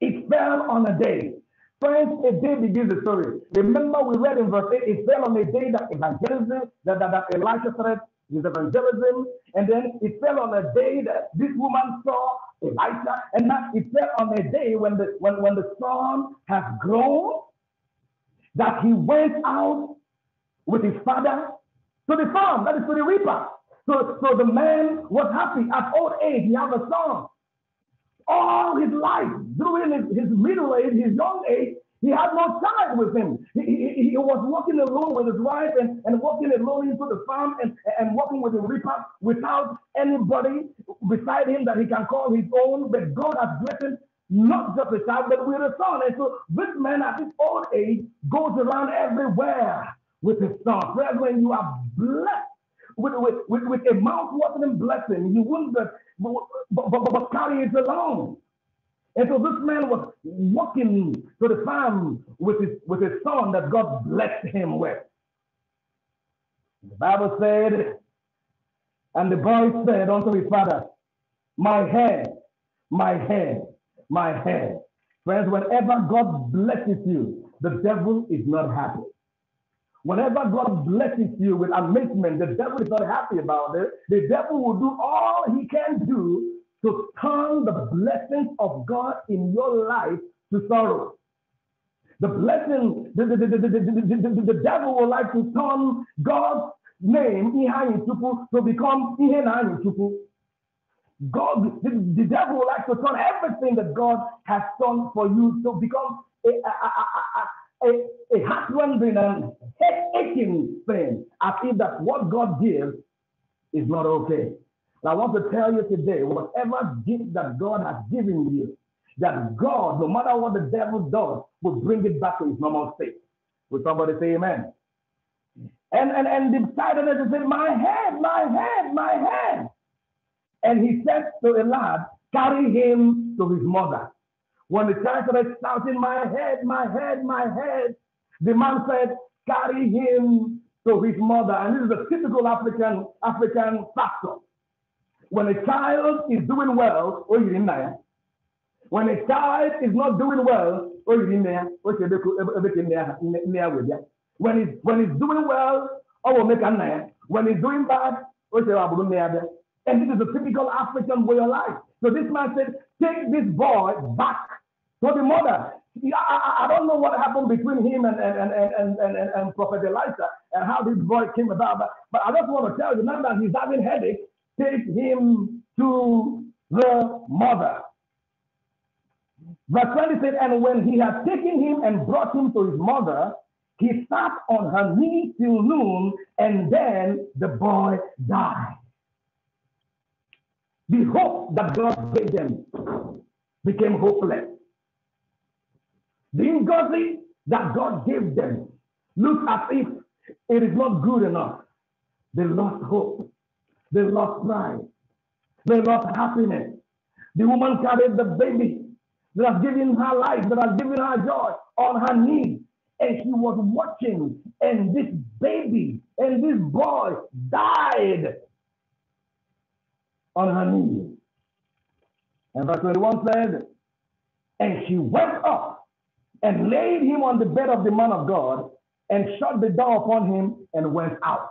it fell on a day. Friends, a day begins the story. Remember, we read in verse 8, it fell on a day that evangelism, that, that, that Elijah said is evangelism, and then it fell on a day that this woman saw Elijah. and that it fell on a day when the when, when the son has grown, that he went out with his father to the farm, that is to the reaper. So, so the man was happy. At old age, he had a son all his life, during his, his middle age, his young age, he had no child with him. He, he, he, was working alone with his wife and, and working alone into the farm and, and working with the reaper without anybody beside him that he can call his own. But God has blessed him not just a child, but with a son. And so this man at his old age goes around everywhere with his son. Friends, when you are blessed with, with, with, with a mouth-watering blessing, you wouldn't but, but, but, but Claudius alone. And so this man was walking to the farm with his, with his son that God blessed him with. The Bible said, and the boy said unto his father, My hair, my hair, my hair. Friends, whenever God blesses you, the devil is not happy. Whenever God blesses you with amazement, the devil is not happy about it. The devil will do all he can do to turn the blessings of God in your life to sorrow. The blessing, the, the, the, the, the, the, the devil will like to turn God's name to become God, the, the devil will like to turn everything that God has done for you to become a, a, a, a a, a husband and head-aching thing. I feel that what God gives is not okay. And I want to tell you today, whatever gift that God has given you, that God, no matter what the devil does, will bring it back to his normal state. Will somebody say amen? And and and the titaness said, My head, my head, my head. And he said to lad, carry him to his mother. When the child started shouting, My head, my head, my head, the man said, Carry him to his mother. And this is a typical African African factor. When a child is doing well, oh, you are in there. When a child is not doing well, oh, you didn't know. When he's, when he's doing well, I oh, will make a name. When he's doing bad, oh, you didn't And this is a typical African way of life. So this man said, Take this boy back so the mother, I, I don't know what happened between him and, and, and, and, and, and, and Prophet Elijah and how this boy came about, but, but I just want to tell you now that he's having headache, take him to the mother. Verse 20 said, And when he had taken him and brought him to his mother, he sat on her knee till noon, and then the boy died. The hope that God gave them became hopeless being godly that God gave them looked as if it is not good enough. They lost hope. They lost pride. They lost happiness. The woman carried the baby that has given her life, that has given her joy on her knees. And she was watching, and this baby and this boy died on her knees. And verse 21 said, And she went up and laid him on the bed of the man of God and shut the door upon him and went out.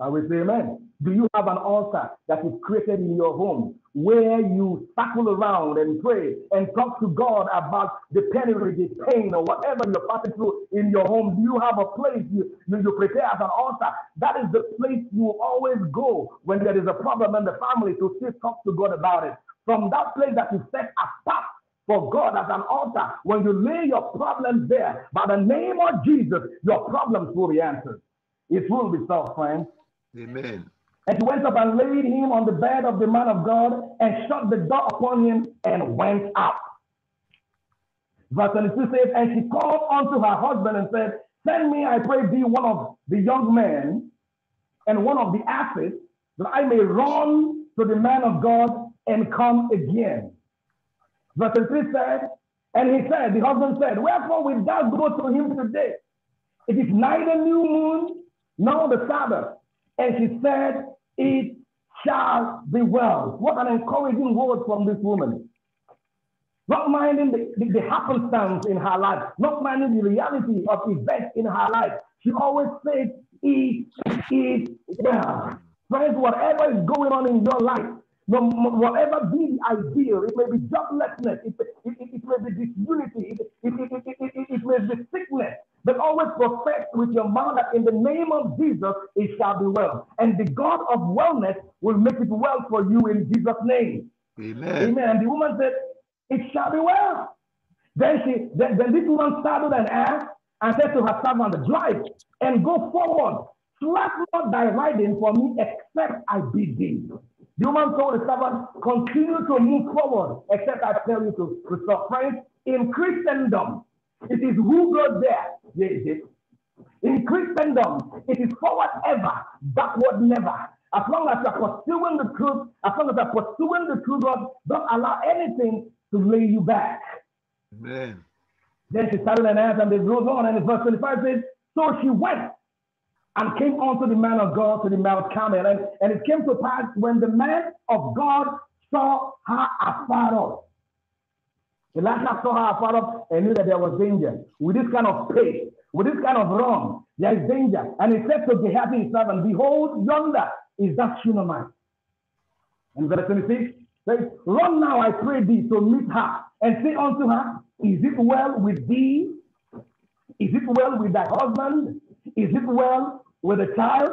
I will say amen. Do you have an altar that is created in your home where you circle around and pray and talk to God about the penury, the pain, or whatever you're passing through in your home? Do you have a place you, you, prepare as an altar? That is the place you always go when there is a problem in the family to still talk to God about it. From that place that you set apart for God as an altar. When you lay your problems there, by the name of Jesus, your problems will be answered. It will be so, friends. Amen. And he went up and laid him on the bed of the man of God and shut the door upon him and went out. Verse 22 says, And she called unto her husband and said, Send me, I pray thee, one of the young men and one of the asses, that I may run to the man of God and come again. Verse 3 said, And he said, the husband said, Wherefore we thou go to him today? It is neither new moon nor the Sabbath. And she said, It shall be well. What an encouraging word from this woman. Not minding the, the, the happenstance in her life, not minding the reality of events in her life. She always says, It is well. Friends, whatever is going on in your life, no, whatever be the ideal, it may be joblessness, it, it, it, it may be disunity, it, it, it, it, it, it may be sickness, but always profess with your mouth that in the name of Jesus it shall be well. And the God of wellness will make it well for you in Jesus' name. Amen. Amen. And the woman said, It shall be well. Then she then, then this woman saddled an ass and said to her servant, Drive and go forward. Slap not thy riding for me, except I bid thee. The woman told the servant, continue to move forward, except I tell you to, to stop. Friends, in Christendom, it is who goes there, there is it. In Christendom, it is forward ever, backward never. As long as you are pursuing the truth, as long as you are pursuing the truth, God, don't allow anything to lay you back. Amen. Then she started and answered, and they rose on, and verse 25 says, So she went and came unto the man of God to the Mount Carmel. And, and it came to pass when the man of God saw her afar off. Elisha saw her afar off and knew that there was danger. With this kind of pace, with this kind of run, there is danger. And he said to Gehazi his servant, Behold, yonder is that Shunammite. And verse 26 says, Run now, I pray thee, to meet her and say unto her, Is it well with thee? Is it well with thy husband? Is it well with the child?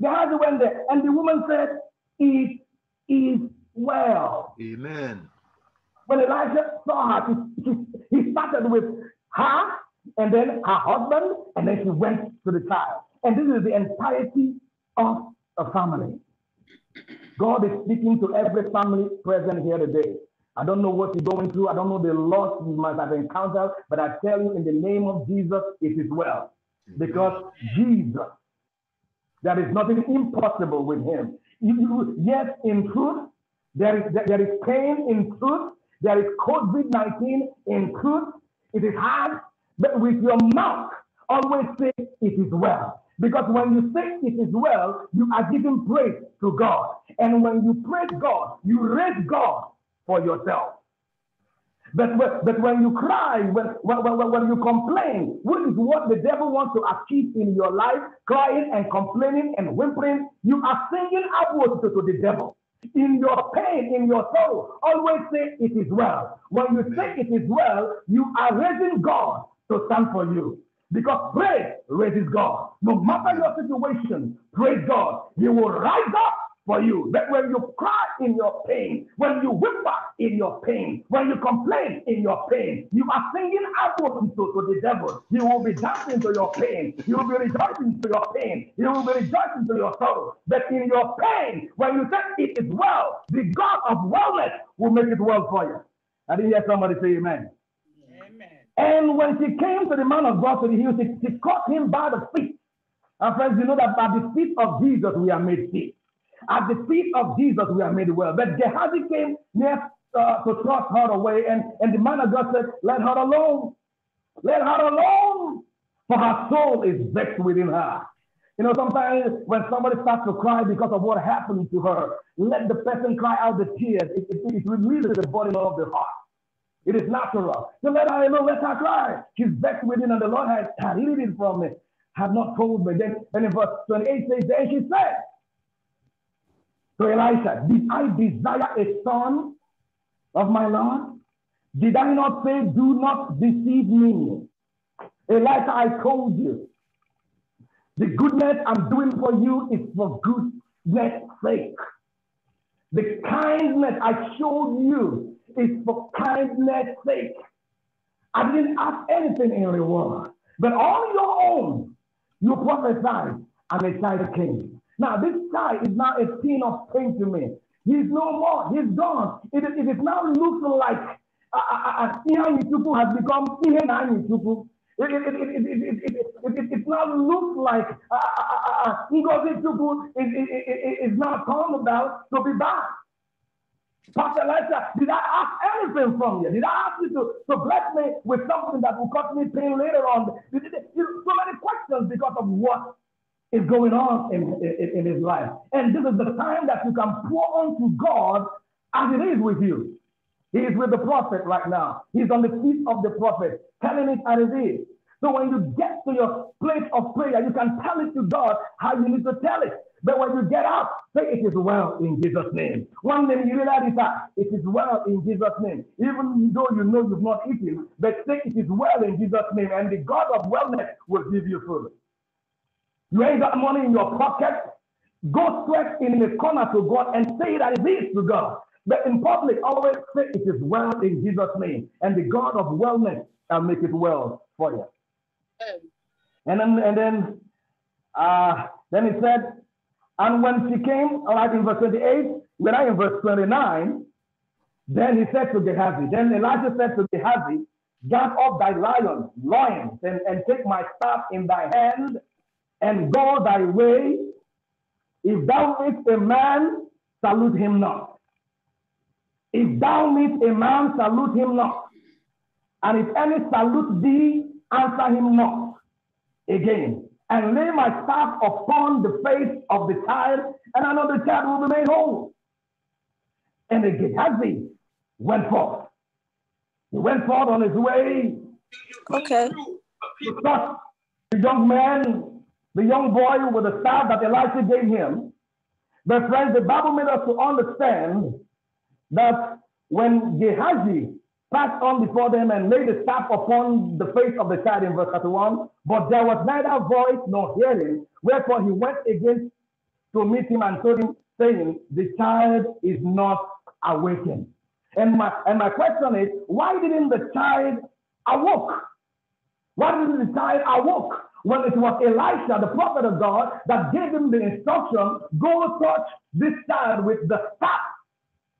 The husband went there, and the woman said, It is well. Amen. When Elijah saw her, he started with her, and then her husband, and then she went to the child. And this is the entirety of a family. God is speaking to every family present here today. I don't know what you're going through. I don't know the loss you must have encountered, but I tell you, in the name of Jesus, it is well because Jesus, there is nothing impossible with him. yes, in truth, there is, there is pain in truth, there is COVID 19 in truth. It is hard, but with your mouth, always say it is well. Because when you say it is well, you are giving praise to God. And when you praise God, you raise God for yourself. But, but, when you cry, when, when, when, when you complain, which is what the devil wants to achieve in your life, crying and complaining and whimpering, you are singing upwards to, to the devil. In your pain, in your sorrow, always say, It is well. When you say it is well, you are raising God to stand for you. Because praise raises God. No matter your situation, praise God. He will rise up for you. That when you cry in your pain, when you whimper in your pain, when you complain in your pain, you are singing out to, to the devil. He will be dancing to your pain. He will be rejoicing to your pain. He will be rejoicing to your sorrow. But in your pain, when you say it is well, the God of wellness will make it well for you. I didn't hear somebody say amen. Amen. And when she came to the man of God to the hill, she, she caught him by the feet. And friends, you know that by the feet of Jesus we are made feet. At the feet of Jesus, we are made well. But Gehazi came near uh, to thrust her away, and, and the man of God said, Let her alone. Let her alone, for her soul is vexed within her. You know, sometimes when somebody starts to cry because of what happened to her, let the person cry out the tears. It, it, it releases the body of the heart. It is natural. So let her alone, let her cry. She's vexed within, and the Lord has hid it from me, have not told me. Then, and in verse 28 says, Then she said, to Elisha, Did I desire a son of my Lord? Did I not say, Do not deceive me? Elisha, I told you, the goodness I'm doing for you is for goodness' sake. The kindness I showed you is for kindness' sake. I didn't ask anything in reward, but on your own, you prophesied, and a child came. Now, this guy is now a scene of pain to me. He's no more. He's gone. It, it is now looking like uh, uh, uh, Ihan Yutupu has become Ihan Yutupu. It, it, it, it, it, it, it, it, it now looks like Ngozi Tupu is, is, now called about to be back. Pastor Elijah, did I ask anything from you? Did I ask you to, to bless me with something that will cause me pain later on? Did, did, did, so many questions because of what is going on in, in, in his life. And this is the time that you can pour unto God as it is with you. He is with the prophet right now. He's on the feet of the prophet, telling it as it is. So when you get to your place of prayer, you can tell it to God how you need to tell it. But when you get out, say it is well in Jesus' name. One name you realize that it is well in Jesus' name. Even though you know you've not eaten, but say it is well in Jesus' name, and the God of wellness will give you food. You ain't got money in your pocket. Go straight in the corner to God and say that it is to God. But in public, always say it is well in Jesus' name. And the God of wellness shall make it well for you. And then, and then, uh, then he said, and when she came, all right, in verse 28, we're not in verse 29. Then he said to Gehazi, then Elijah said to Gehazi, Gather up thy lion, lions, and, and take my staff in thy hand and go thy way. If thou meet a man, salute him not. If thou meet a man, salute him not. And if any salute thee, answer him not. Again, and lay my staff upon the face of the child, and another child will be made whole. And the Gehazi went forth. He went forth on his way. Okay. He the young man the young boy with the staff that Elisha gave him. But friends, the Bible made us to understand that when Gehazi passed on before them and laid the staff upon the face of the child in verse 31, but there was neither voice nor hearing, wherefore he went again to meet him and told him, saying, The child is not awakened. And my, and my question is, why didn't the child awoke? Why didn't the child awoke? Well, it was Elisha, the prophet of God, that gave him the instruction go touch this child with the staff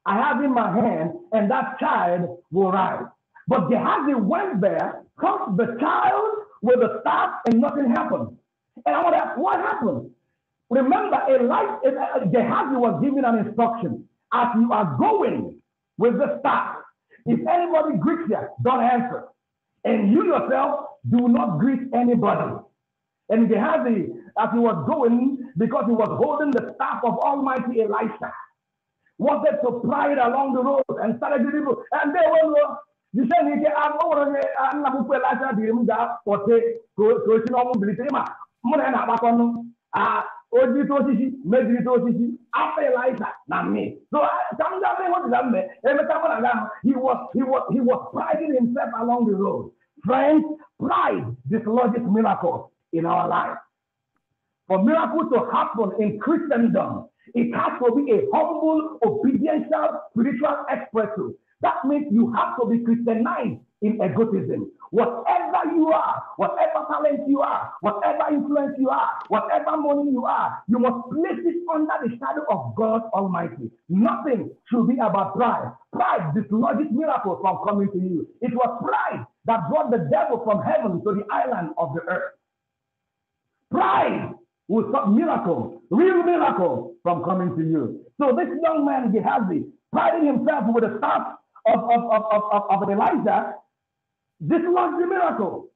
I have in my hand, and that child will rise. But Gehazi went there, touched the child with the staff, and nothing happened. And I want to ask, what happened? Remember, Elisha, eh, eh, Gehazi was given an instruction as you are going with the staff. If anybody greets you, don't answer. And you yourself do not greet anybody. And Gehazi, as he was going, because he was holding the staff of Almighty Elisha, was that to pry it along the road and started the people. And they were, you said, I'm not going Elisha, I'm not going to Elisha, I'm not going to ojiri to osisi mejiri to osisi afọ elisa na me so ka m gaa ịhụ dịda mgbe emeka mụ he was he was he was priding himself along the road friends pride dislodges miracles in our life. For miracles to happen in Christendom, it has to be a humble, obedient, spiritual expression. That means you have to be Christianized in egotism. Whatever you are, whatever talent you are, whatever influence you are, whatever money you are, you must place it under the shadow of God Almighty. Nothing should be about pride. Pride dislodges miracles from coming to you. It was pride that brought the devil from heaven to the island of the earth. Pride will stop miracles, real miracles from coming to you. So this young man, Gehazi, priding himself with the staff of, of, of, of, of Elijah, this was the miracle.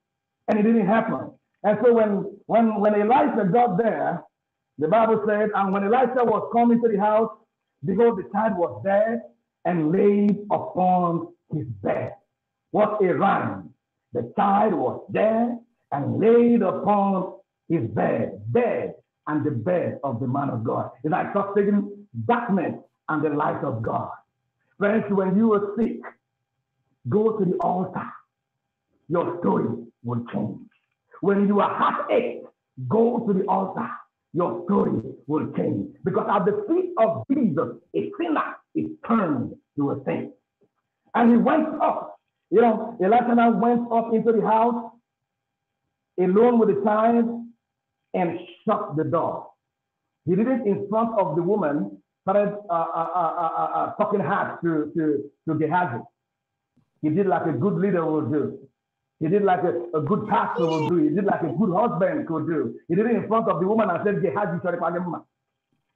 And it didn't happen. And so when, when, when Elijah got there, the Bible said, and when Elijah was coming to the house, because the child was dead and laid upon his bed. What a rhyme. The child was dead and laid upon is bed, bed, and the bed of the man of God. It's like taking darkness and the light of God. Friends, when you are sick, go to the altar. Your story will change. When you are heartache, go to the altar. Your story will change. Because at the feet of Jesus, a sinner is turned to a saint. And he went up. You know, Elijah went up into the house alone with the child and shut the door. He did it in front of the woman, started uh uh uh, uh, uh, uh, talking hard to, to, to Gehazi. He did like a good leader would do. He did like a, a good pastor would do. He did like a good husband could do. He did it in front of the woman and said, Gehazi, sorry, Palimma.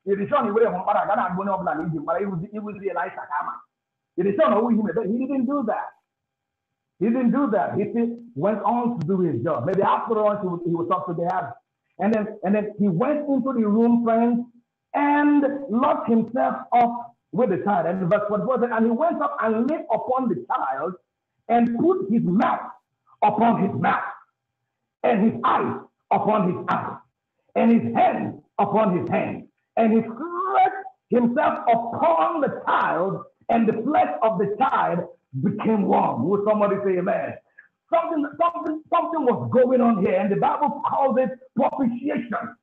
It is on the way from Paragana and Bonobla, but he was realized Sakama. It is on who he didn't do that. He didn't do that. He went on to do his job. Maybe after all, he was, talk to Gehazi. And then, and then he went into the room, friends, and locked himself up with the child. And verse it. and he went up and lay upon the child and put his mouth upon his mouth, and his eyes upon his eyes, and his hands upon his hands. And he stretched himself upon the child, and the flesh of the child became warm. Would somebody say amen? Something, something, something was going on here, and the Bible calls it propitiation.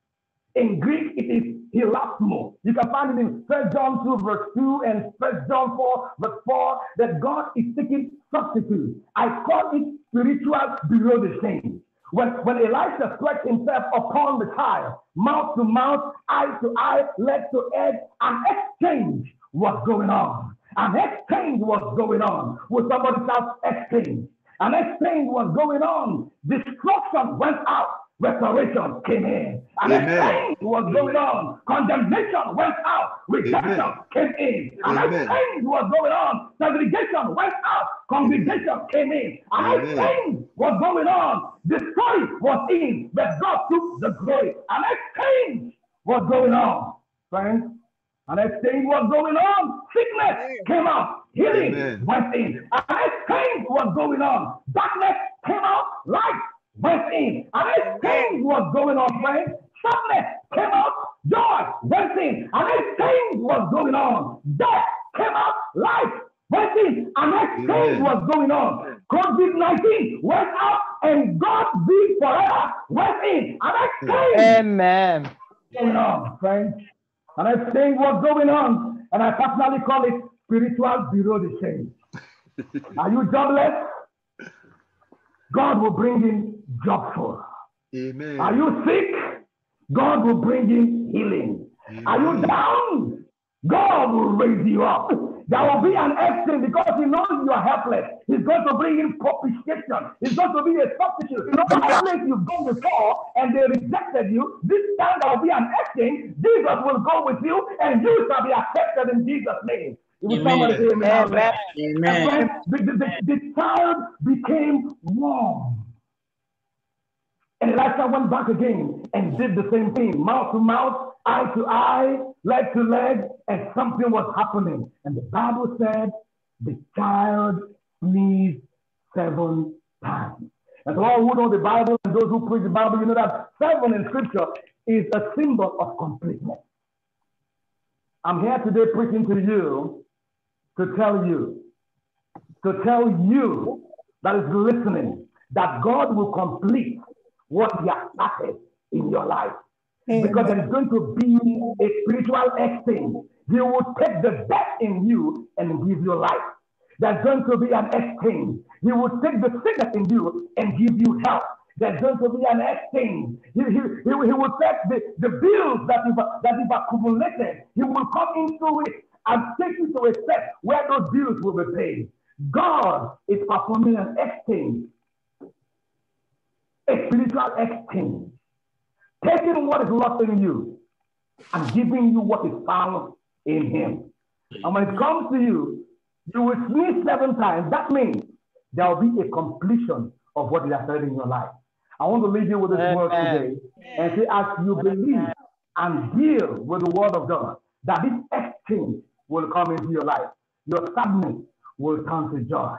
In Greek, it is hilasmo. You can find it in 1 John 2, verse 2, and 1 John 4, verse 4, that God is taking substitute. I call it spiritual below the When, when Elisha stretched himself upon the tile, mouth to mouth, eye to eye, leg to head, an exchange was going on. An exchange was going on. With somebody else exchange? and explained was going on. Destruction went out, restoration came in. And Amen. explained was going on. Condemnation went out, redemption Amen. came in. And Amen. explained was going on. Segregation went out, congregation came in. And Amen. explained was going on. Destroy was in, but God took the glory. And explained was going on. Friends, and I explained what's going on. Sickness Amen. came out. Healing Amen. went in. And I explained what's going on. Darkness came out. Light went in. And I explained what's going on, friends. Sadness came out. Joy went in. And I explained what's going on. Death came out. Life went in. And I explained what's going on. COVID 19 went out. And God be forever went in. And I explained. Amen. What's going on, friends. And I think what's going on. And I personally call it spiritual bureau change. <laughs> Are you jobless? God will bring in for. Amen. Are you sick? God will bring in healing. Amen. Are you down? God will raise you up. There will be an exit because he knows you are helpless. He's going to bring in propitiation. He's going to be a substitute. You know, that place you've gone before and they rejected you, this time there will be an exit. Jesus will go with you and you shall be accepted in Jesus' name. amen. Amen. amen. amen. The, the, the, the child became warm. And Elisha went back again and did the same thing, mouth to mouth, eye to eye, leg to leg, and something was happening. And the Bible said the child sneezed seven times. And so all who know the Bible and those who preach the Bible, you know that seven in scripture is a symbol of completeness. I'm here today preaching to you to tell you, to tell you that is listening, that God will complete what He has started in your life. Amen. Because there's going to be a spiritual exchange. He will take the best in you and give you life. There's going to be an exchange. He will take the sickness in you and give you health. There's going to be an exchange. He, he, he, he will take the, the bills that you've, that you've accumulated. He will come into it and take you to a step where those bills will be paid. God is performing an exchange, a spiritual exchange taking what is lost in you and giving you what is found in Him. And when it comes to you, you will sneeze seven times. That means there will be a completion of what is said in your life. I want to leave you with this Amen. word today and say, as you believe and deal with the word of God, that this exchange will come into your life. Your sadness will turn to joy.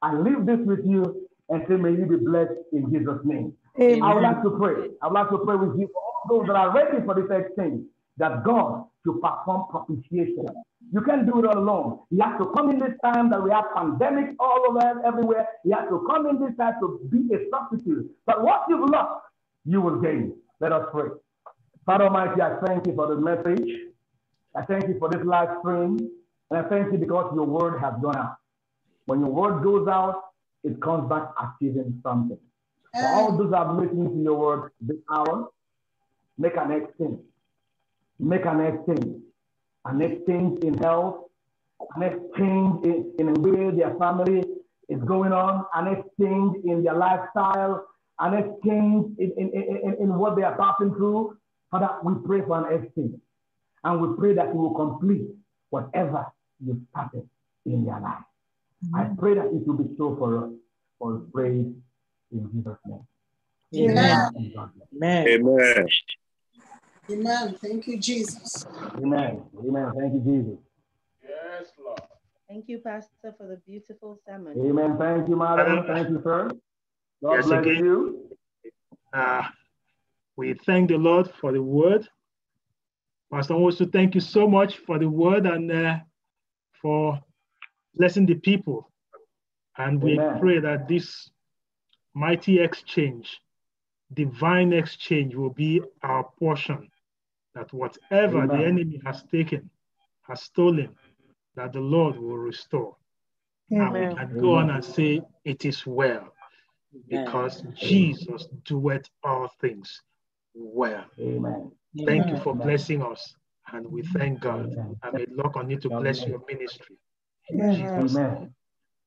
I leave this with you and say, may you be blessed in Jesus' name. Amen. I would like to pray. I would like to pray with you all those that are ready for this exchange that God should perform propitiation. You can't do it all alone. He has to come in this time that we have pandemic all over everywhere. He has to come in this time to be a substitute. But what you've lost, you will gain. Let us pray. Father Almighty, I thank you for the message. I thank you for this live stream. And I thank you because your word has gone out. When your word goes out, it comes back achieving something all those that make into your word this hour, make an exchange. Make an exchange. An exchange in health, an exchange in, in the way their family is going on, an exchange in their lifestyle, an exchange in, in, in, in what they are passing through. Father, we pray for an exchange. And we pray that you will complete whatever you started in their life. Mm-hmm. I pray that it will be so for us. For praise in name. Amen. Amen. Amen. Amen. Thank you, Jesus. Amen. Amen. Thank you, Jesus. Yes, Lord. Thank you, Pastor, for the beautiful sermon. Amen. Thank you, Madam. Thank you, sir. God yes, bless again. you. Uh, we thank the Lord for the word. Pastor Also, thank you so much for the word and uh, for blessing the people. And we Amen. pray that this mighty exchange, divine exchange will be our portion. That whatever Amen. the enemy has taken, has stolen, that the Lord will restore. Amen. And we can go on and say, It is well, because Jesus doeth all things well. Amen. Thank you for blessing us, and we thank God. And may on you to bless your ministry. Amen.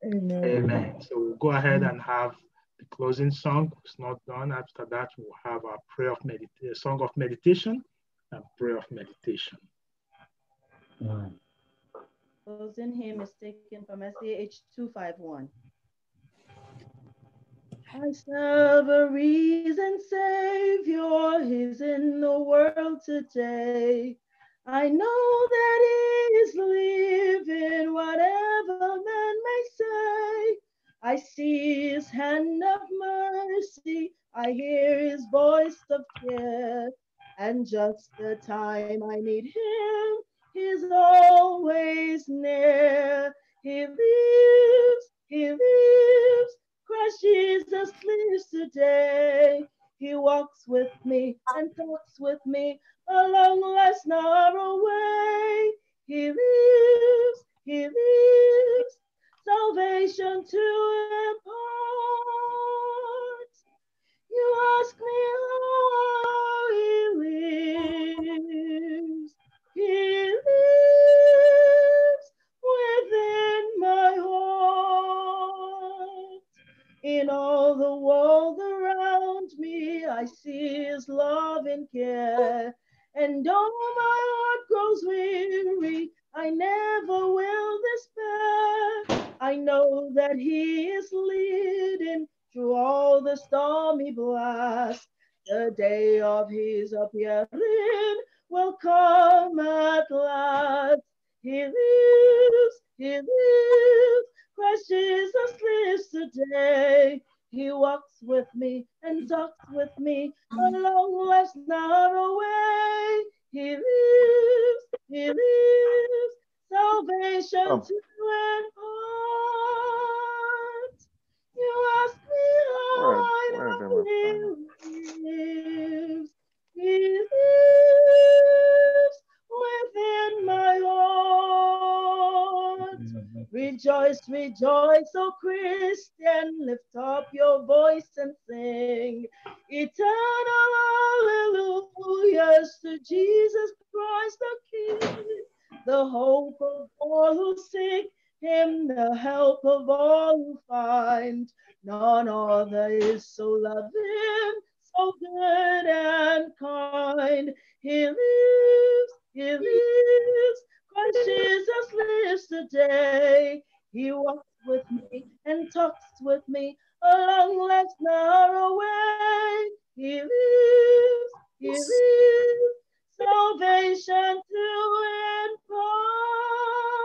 Amen. Amen. So we'll go ahead and have the closing song is not done. After that, we'll have our prayer of medita- song of meditation and prayer of meditation. Right. Mm. Closing hymn is taken from SDH 251. I serve a reason, Savior He's in the world today. I know that he is living, whatever man may I see his hand of mercy, I hear his voice of care. and just the time I need him, he's always near. He lives, he lives, Christ Jesus lives today. He walks with me and talks with me along less narrow way. He lives, he lives, salvation to impart. You ask me how he lives. He lives within my heart. In all the world around me, I see his love and care. And though my heart grows weary, I never will despair. I know that he is leading through all the stormy blast. The day of his appearing will come at last. He lives, he lives. Christ Jesus lives today. He walks with me and talks with me along life's narrow way. He lives, he lives. Salvation oh. to and all. You ask me how where, lives. He lives within my heart. Rejoice, rejoice, O Christian. Lift up your voice and sing. Eternal hallelujahs to Jesus Christ the King, the hope of all who seek him the help of all who find. None other is so loving, so good and kind. He lives, he lives, Christ Jesus lives today. He walks with me and talks with me along life's narrow way. He lives, he lives, salvation to impart.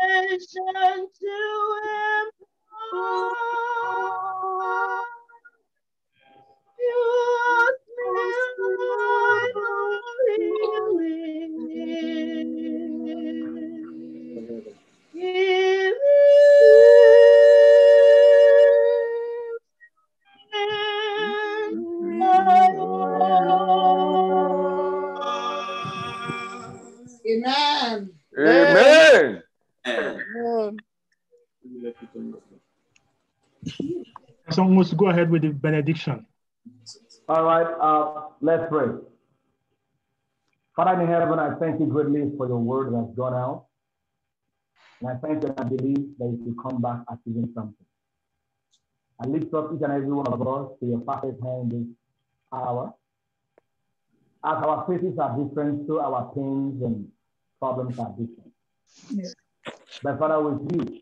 salvation to impart. You Amen. Amen. Someone wants to go ahead with the benediction. All right, uh, let's pray. Father in heaven, I thank you greatly for your word that's gone out. And I thank you and I believe that it will come back as something. I lift up each and every one of us to your perfect hand this hour. As our faces are different, so our pains and problems are different. Yes. But Father, with you,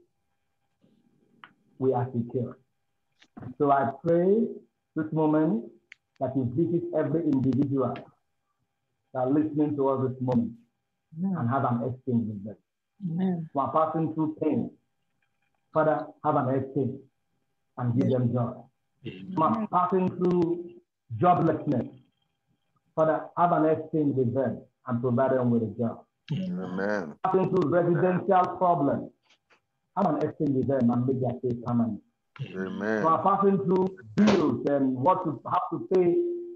we are secure. So I pray this moment that you visit every individual that are listening to us this moment and have an exchange with them. Yeah. are passing through pain. Father, have an exchange and give them joy. Who are passing through joblessness. Father, have an exchange with them and provide them with a job. Amen. Passing through residential problems have an exchange with them and make their case permanent. Amen. So are passing through bills and what to have to pay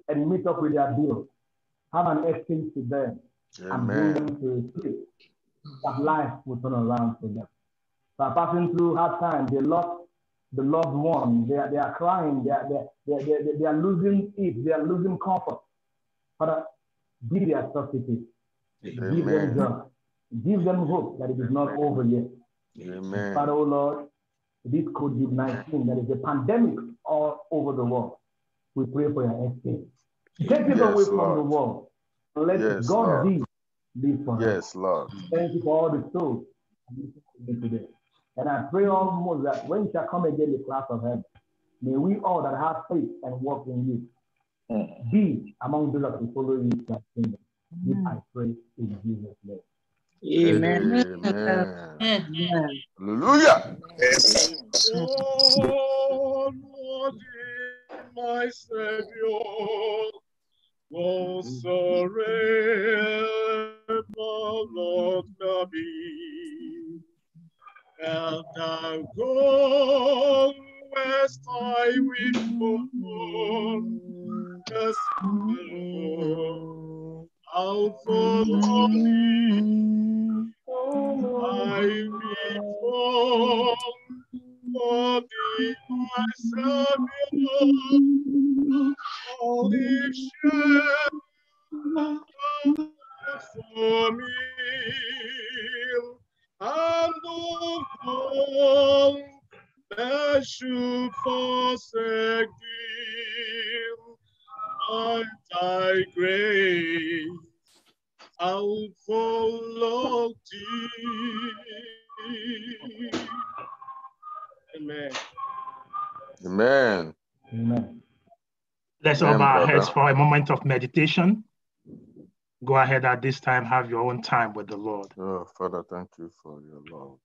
and meet up with their bills. Have an exchange with them Amen. and bring them to a place that life will turn around for them. So are passing through hard times. They lost the loved one. They are, they are crying. They are, they, are, they, are, they are losing it. They are losing comfort. Father, give their substitute. Give them joy. Give them hope that it is not over yet. Amen. But oh Lord, this COVID 19, there is a pandemic all over the world. We pray for your escape. Take it yes, away from the world. Let yes, God be live for Yes, Lord. Thank you for all the souls today. And I pray almost that when you shall come again, the class of heaven, may we all that have faith and walk in you mm. be among those that will follow you to that kingdom. This mm. I pray in Jesus' name. Amen. Amen. Amen. Hallelujah. Oh, Lord, my Savior, oh, surrender, Lord, me. And thou go west I will go, yes, Lord. I'll follow thee. I belong for thee, my Savior. Holy shepherd for me. And of all that should forsake thee by thy grace, I'll follow thee. Amen. Amen. Amen. Let's Amen, our heads for a moment of meditation. Go ahead at this time, have your own time with the Lord. Oh, Father, thank you for your love.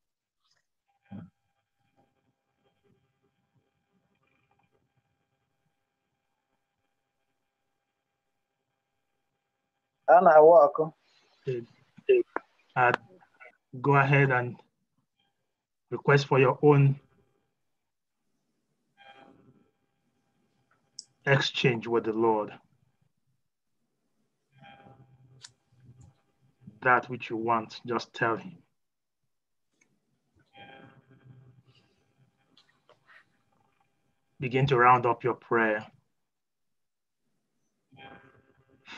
And I awa Go ahead and request for your own exchange with the Lord. That which you want, just tell Him. Begin to round up your prayer.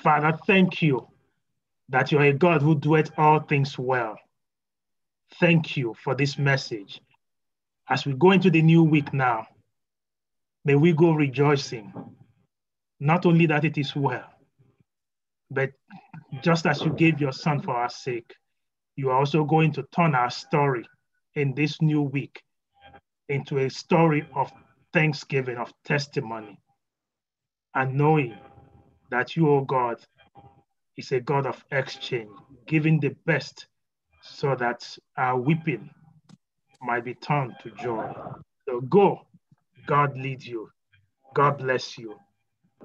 Father, thank you that you are a God who doeth all things well. Thank you for this message. As we go into the new week now, may we go rejoicing. Not only that it is well, but just as you gave your son for our sake, you are also going to turn our story in this new week into a story of thanksgiving, of testimony, and knowing that you, O oh God, is a God of exchange, giving the best so that our weeping might be turned to joy. So go, God leads you, God bless you,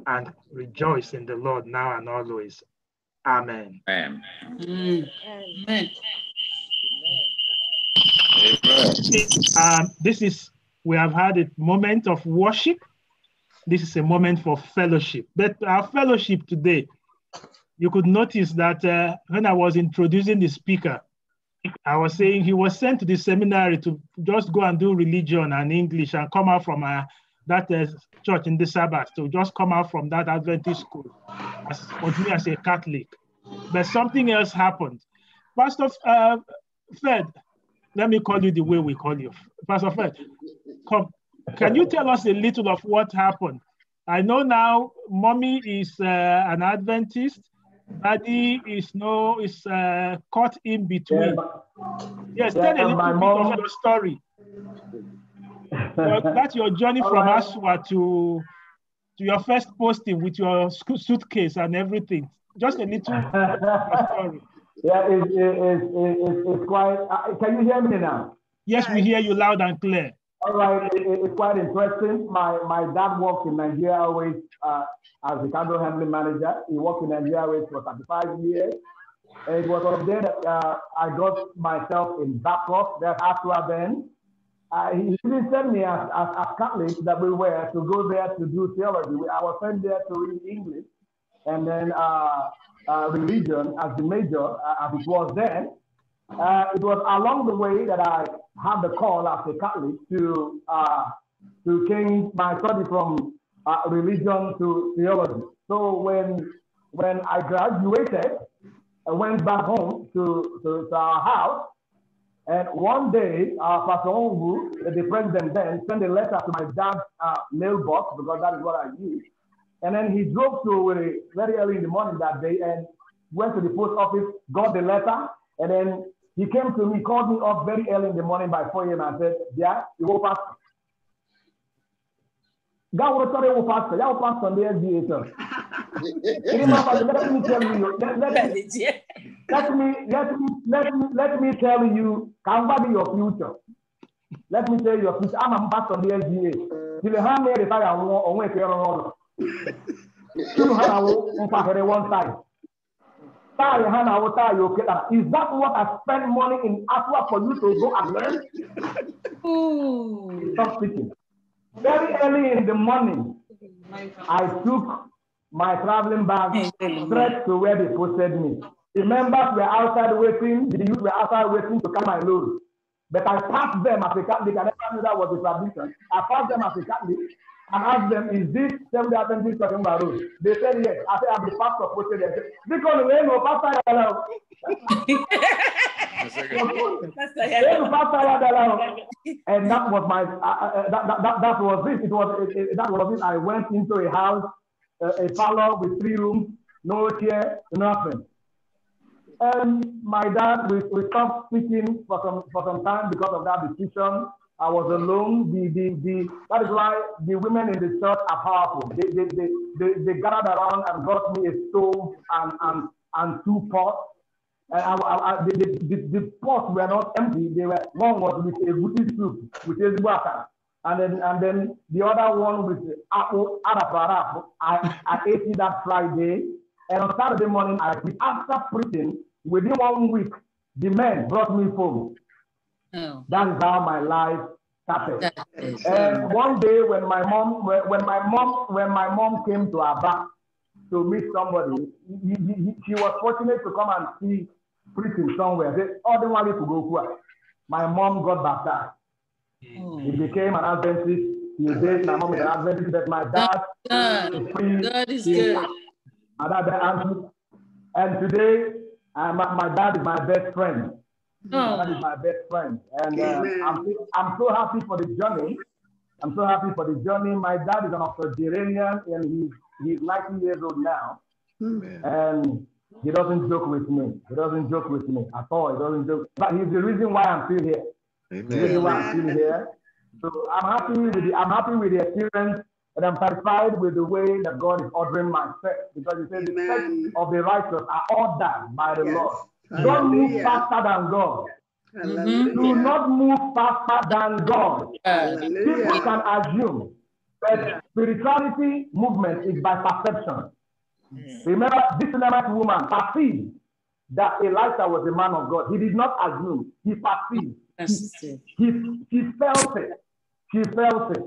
and rejoice in the Lord now and always. Amen. Amen. Amen. Amen. Um, this is, we have had a moment of worship this is a moment for fellowship. But our fellowship today, you could notice that uh, when I was introducing the speaker, I was saying he was sent to the seminary to just go and do religion and English and come out from a, uh, that uh, church in the Sabbath, to just come out from that Adventist school, as, me as a Catholic. But something else happened. Pastor uh, Fed, let me call you the way we call you. Pastor Fed, come, can you tell us a little of what happened? I know now mommy is uh, an Adventist, daddy is no is uh, caught in between. Yeah. Yes, yeah, tell a little bit mom... of your story. your, that's your journey from right. <laughs> Aswa to to your first posting with your suitcase and everything. Just a little story. <laughs> Yeah, it's, it's, it's, it's quite. Uh, can you hear me now? Yes, we hear you loud and clear. All right, it, it's quite interesting. My my dad worked in Nigeria Airways uh, as the cargo handling manager. He worked in Nigeria Airways for 35 years. And it was then there that uh, I got myself in backup, there after then. Uh, he didn't send me as, as, as that we were to go there to do theology. I was sent there to read English and then uh, uh religion as the major, uh, as it was then. Uh, it was along the way that I had the call as a Catholic to uh, to change my study from uh, religion to theology. So when when I graduated, I went back home to, to, to our house, and one day uh, Pastor Ongu, the president then, sent a letter to my dad's uh, mailbox because that is what I use, And then he drove to very early in the morning that day and went to the post office, got the letter, and then He came to me, called me up very early in the morning by 4 a.m. and said, Yeah, you go fast. God will tell you pastor. Y'all pastor on the SBA, sir. let me tell you. Let, let, me, let me let me let me let me tell you. Can what be your future? Let me tell you your future. I'm a pastor on the SBA. You the hand there, if I want, on where you are on. Still have a one side. Tari Hana Wata Yoketa. Is that what I spend money in Aswa for you to go and learn? Stop speaking. Very early in the morning, I took my traveling bag straight to where they posted me. The members were outside waiting, the youth were outside waiting to come my load. But I passed them as a Catholic. I never knew that was a tradition. I passed them as a Catholic. And asked them, is this Seventh Adventist talking about road? They said yes. I said, I'm the pastor of this. Because we know pastor <laughs> hello. and that was my uh, uh, uh, that, that, that, that was this. It was it, it, that was it. I went into a house, uh, a parlor with three rooms, no chair, nothing. And my dad, we, we stopped speaking for some for some time because of that decision. I was alone. The, the, the, that is why the women in the church are powerful. They, they, they, they, they gathered around and got me a stove and, and, and two pots. And I, I, I, the, the, the, pots were not empty. They were, one was with a goody soup, with is water. And then, and then the other one with apple, araparap. I, I <laughs> ate it that Friday. And on Saturday morning, I, after preaching, within one week, the men brought me food. Oh. That's how my life started. and one day when my mom, when my mom, when my mom came to Aba to meet somebody, he, he, he, she was fortunate to come and see preaching somewhere. They ordinarily to go to My mom got baptized. Oh. He became an Adventist. He dated my mom is an Adventist, but my dad God, is God is he, good. and today, uh, my, my dad is my best friend. Oh. That is my best friend. And uh, I'm, I'm so happy for the journey. I'm so happy for the journey. My dad is an octogenarian and he's, he's 90 years old now. Amen. And he doesn't joke with me. He doesn't joke with me at all. He doesn't joke. But he's the reason why I'm still here. Amen. The reason why I'm still here. So I'm happy with the, I'm happy with the experience and I'm satisfied with the way that God is ordering my steps because he says Amen. the steps of the righteous are ordered by the yes. Lord. Don't move faster than God. Mm-hmm. Do not move faster than God. Hallelujah. People can assume, but spirituality movement is by perception. Mm. Remember, this Levite woman perceived that Elijah was a man of God. He did not assume, he perceived. He, he, he, felt it. He felt it.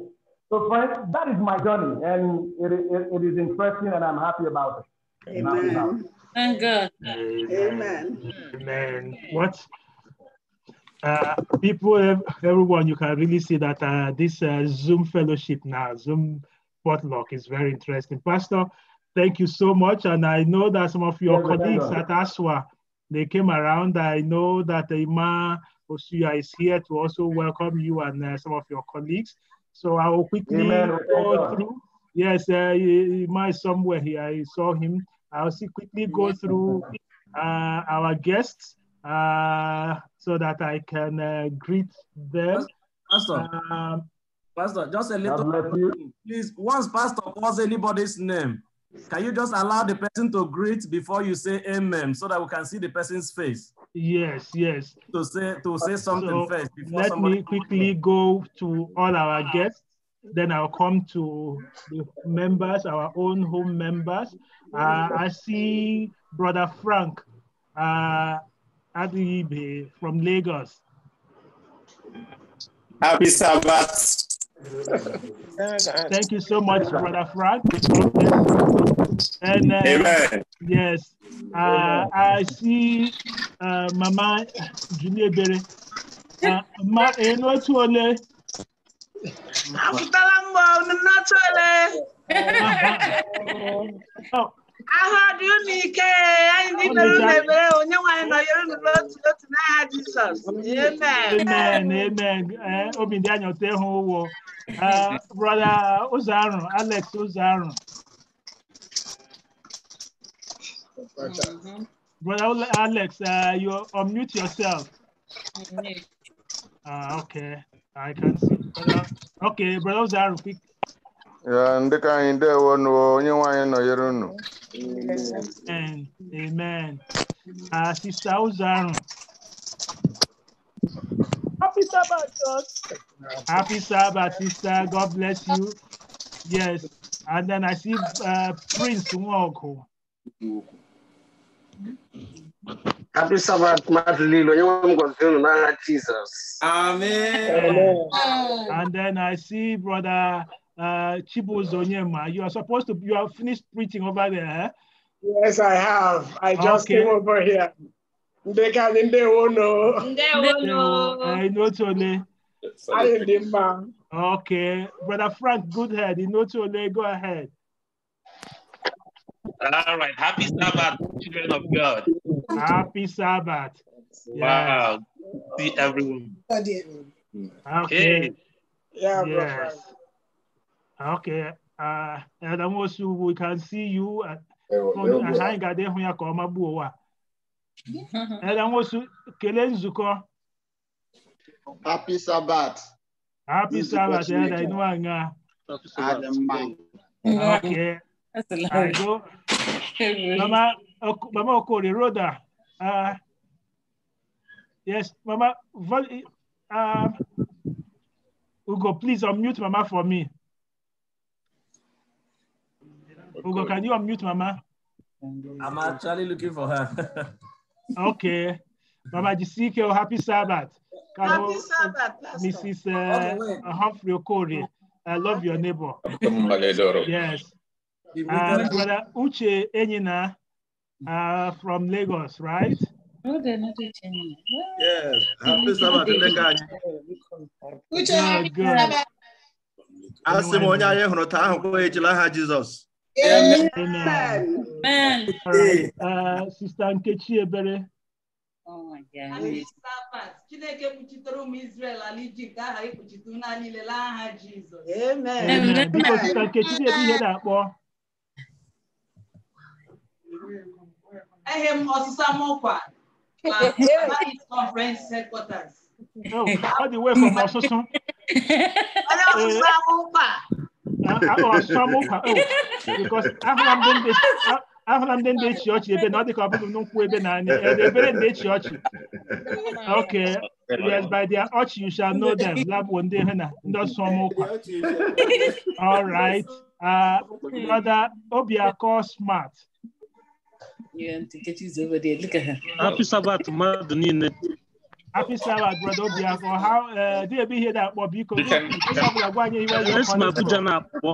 So, friends, that is my journey, and it, it, it is interesting, and I'm happy about it. Amen. Thank God. Amen. Amen. What? Uh, people, everyone, you can really see that uh, this uh, Zoom fellowship now, Zoom potluck is very interesting. Pastor, thank you so much. And I know that some of your yeah, colleagues at ASWA, they came around. I know that Ima Osuya is here to also welcome you and uh, some of your colleagues. So I will quickly Amen. go through. Yes, uh, Ima is somewhere here. I saw him. I'll see quickly go through uh, our guests uh, so that I can uh, greet them. Pastor, um, Pastor, just a little, please. Once Pastor calls anybody's name, can you just allow the person to greet before you say amen so that we can see the person's face? Yes, yes. To say to say uh, something so first. let me quickly go to all our guests. Then I'll come to the members, our own home members. Uh, I see Brother Frank uh, Adibe from Lagos. Happy Sabbath. Thank you so much, Brother Frank. And, uh, Amen. Yes, uh, I see uh, Mama Julie Berry. Uh, Ma, Aku talambau nena cele. Aha di unike ayi na lebe onye nwanyi na yoro na lot lot na ha Jesus. Amen. Amen. Amen. Eh obi ndị anya ote ho wo. Ah eh, brother Uzaru, Alex mm-hmm. Brother Alex, uh, you unmute yourself. Mm-hmm. Ah, okay. I can see. Okay, brother Zaru, quick. ndị ka anyị ndewo nụwo onye nwaanyị nọnyere unu amen uh, ah, sista ụzọarụ happy sabbath God. happy sabbath sister god bless you yes and then i see uh, prince nwaọgụ Happy Sabbath, You ngatisabathu madlilo njengoMngozini na Jesus. Amen. And then I see brother uh, Chibu Zonyema. You are supposed to, you have finished preaching over there. Eh? Yes, I have. I just okay. came over here. They They can't know. won't know. I know Tony. I am Okay. Brother Frank good head. you know Tony, go ahead. All right. Happy Sabbath, children of God. Happy Sabbath. Wow. Yes. See everyone. Okay. Yeah, yes. Okay. Uh, and almost we can see you. Uh, anyị ga-adị ịhụ ya ka ọ magbuo ụwa elenwosu kelee nzukọ happy sabat happy sabat eda inu anya adị mma okay. Hello. <laughs> Hello. Mama Okori, Rhoda. Uh, yes, Mama. Um, Ugo, please unmute Mama for me. Ugo, can you unmute Mama? I'm actually looking for her. <laughs> okay. Mama Jisike, oh, happy Sabbath. Happy Sabbath, Pastor. Mrs. Uh, Humphrey Okori, I love your neighbor. yes. Uh, Brother Uche Enyina, uh, from Lagos, right? No, they're not Yes. Happy Sabbath, A m onye anyị hụrụ taa ahụ kpọọ ejila aha Jizọs. Amen. Sista Nkechi Ebere. Chineke aha Amen. Biko Sista Nkechi ihe na-akpọ. I m ọsịsa m Conference Headquarters. oh, because okay yes by their ọchị you shall know them na all right uh, brother obiakọ smart Happy Sabbath niile. Happy Sabbath brother uh, dị ebe ihe akpọ biko ọbụla iwe Abuja na-akpọ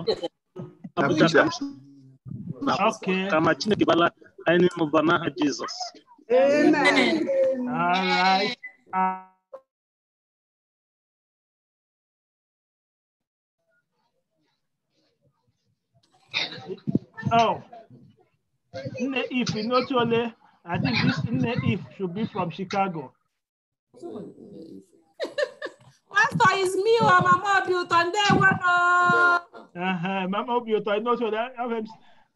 Abuja Chineke bala anyị n'ụba n'aha Amen. All right. Oh. Nne If Inotole, I think this Nne If should be from Chicago. Pastor is me or Mama Obiuto, and then one. Mama Obiuto, I know so that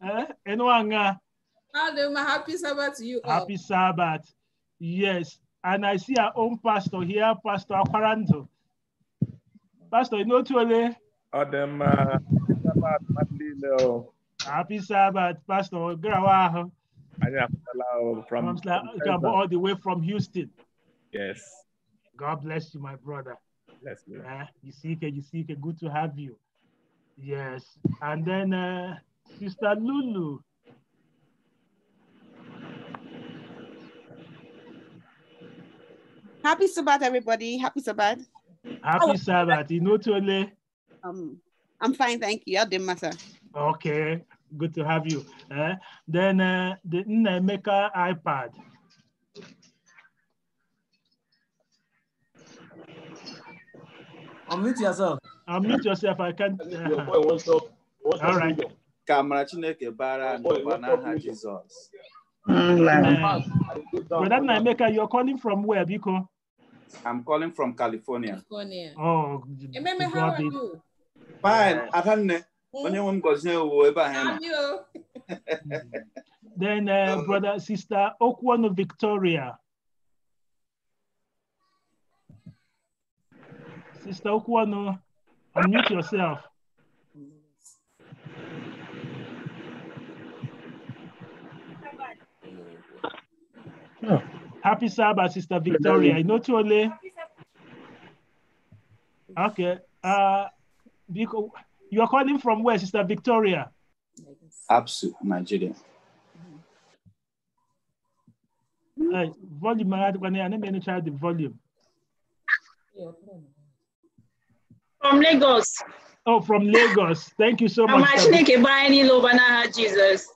I am. Happy Sabbath to you. All. Happy Sabbath. Yes. And I see our own pastor here, Pastor Aquaranto. Pastor Inotole. Adam, Sabbath, Madeleine. Happy Sabbath, Pastor Grawaho. From, from, from all the way from Houston. Yes. God bless you, my brother. Bless you. Uh, eh, you see, it, you see. it. Good to have you. Yes. And then uh, Sister Lulu. Happy Sabbath, everybody. Happy Sabbath. Happy Sabbath. You know, Tole. Um, I'm fine, thank you. i did do matter. Okay, good to have you. Uh, then uh, the Nnaemeka iPad. Unmute yourself. Unmute yourself. I can't. Uh, Your boy wants up. Wants all right. Kamara Chineke bara n'ọbanaha Jizọs. Brother Nnaemeka, you're calling from where, Biko? I'm calling from California. California. Oh, Ememe, how are you? Fine. Adanne. <laughs> then uh, brother sister Okwano, victoria sister Okwano, unmute yourself oh. Happy Sabbath, Sister Victoria. I know Tole. Okay. Uh, because you are calling from where, Sister Victoria? Absu, Nigeria. volume, I need to try the volume. From Lagos. Oh, from Lagos. Thank you so much. Jesus.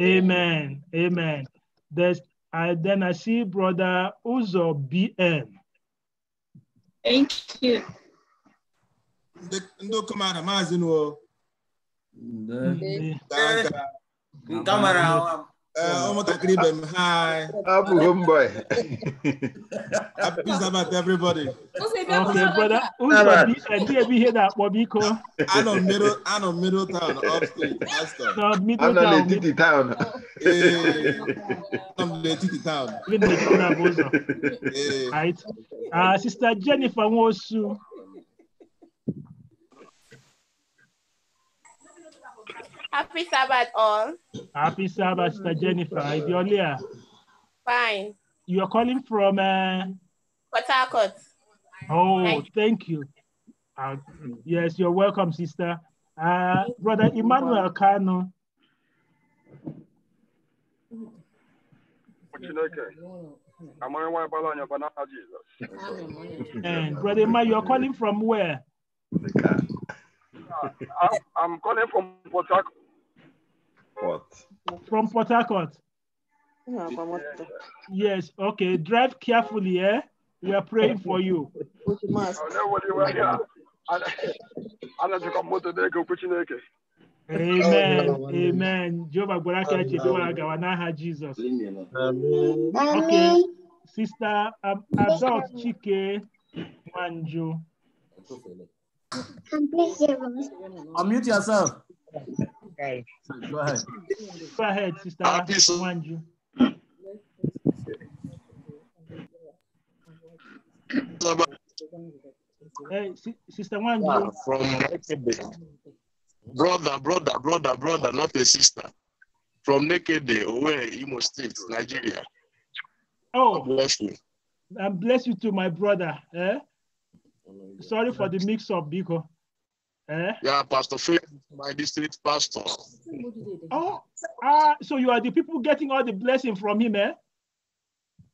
Amen. Amen. There's, I, then I see Brother Uzo BN. Thank you ndị okomara maazị nuo nke eh, mara ụmụntakịrị ibe m hi Abu mbọ Happy about everybody. Okay, brother. Who's the bụ ihe na-akpọ biko. Anọ anọ middle town, upstate, Aston. No, middle town. upstate, Anọ n'etiti town. Ee, anọ n'etiti town. I'm na-abụ town. Right. Uh, Sister Jennifer Nwosu. Happy Sabbath, all. Happy Sabbath, Sister Jennifer. Idiolia. Fine. You are calling from? Uh... Harcourt. Oh, thank, you. Uh, yes, you're welcome, sister. Uh, Brother Emmanuel Kano. And eh, Brother Emmanuel, you're calling from where? I'm, I'm calling from Port Harcourt. Harcourt. From Port Harcourt. yes, okay. Drive carefully, eh? We are praying for you. Amen. Oh, Amen. Jehovah Boraka Jehovah Gawanaha Jesus. Okay. Sister um, Adult Chike Manjo. Unmute yourself guy. Go ahead. Go ahead, sister. Obviously. Hey, sister Wanju. Ah, from brother, brother, brother, brother, not a sister. From naked Nekede, away, Imo State, Nigeria. Oh, bless you. And bless you to my brother. Eh? Sorry for the mix up, Biko. Eh? Yeah, Pastor Faith, my district pastor. <laughs> Oh, uh, so you are the people getting all the blessing from him, eh?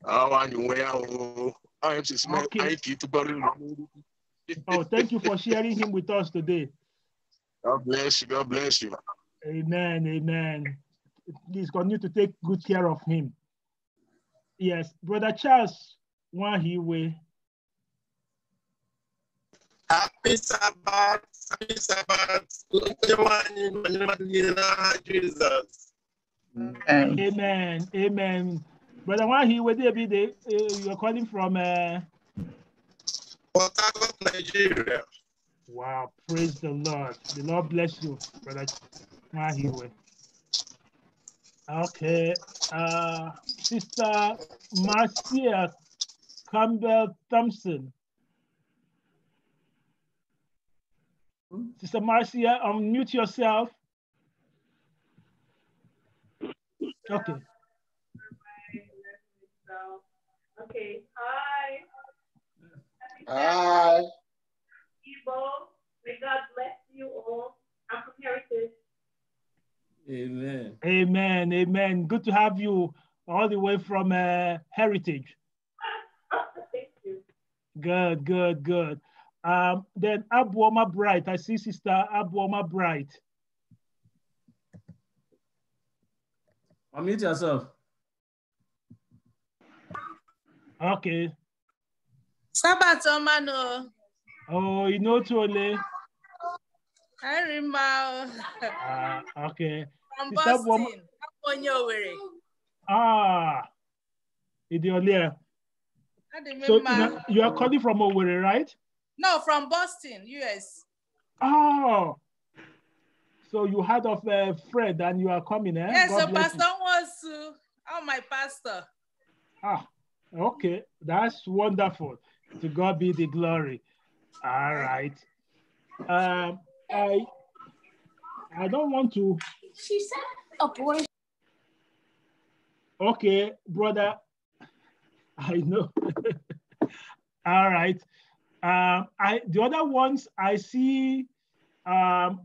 Ah, oh, okay. <laughs> oh, thank you for sharing him with us today. God bless you. God bless you. Amen. Amen. Please continue to take good care of him. Yes, Brother Charles he will. Happy Sabbath, happy Sabbath. Jamani, kwa jina la Lord Jesus. Amen. Amen. Brother why where with you the, eh, you are calling from? Uh... Port Nigeria. Wow, praise the Lord. The Lord bless you, Brother Wahi. Okay, uh, Sister Marcia Campbell Thompson. Sister Marcia, unmute yourself. Okay. Okay. Hi. Hi. Ibo, may God bless you all. I'm from Heritage. Amen. Amen. Amen. Good to have you all the way from uh, Heritage. <laughs> Thank you. Good, good, good. Um, then Abuoma Bright, I see Sister Abuoma Bright. Unmute yourself. Okay. Sabbath Omano. Oh, you know Tole. I remember. Ah, okay. From Sister Boston. Abuoma... Ah, Idiolier. So you are calling from Owerri, right? No, from Boston, US. Oh. So you heard of uh, Fred and you are coming, eh? Yes, God so Pastor you. wants to. Oh, my pastor. Ah, okay. That's wonderful. To God be the glory. All right. Um, I I don't want to. She said abortion. Okay, brother. <laughs> I know. <laughs> All right. Um, I, the other ones I see um,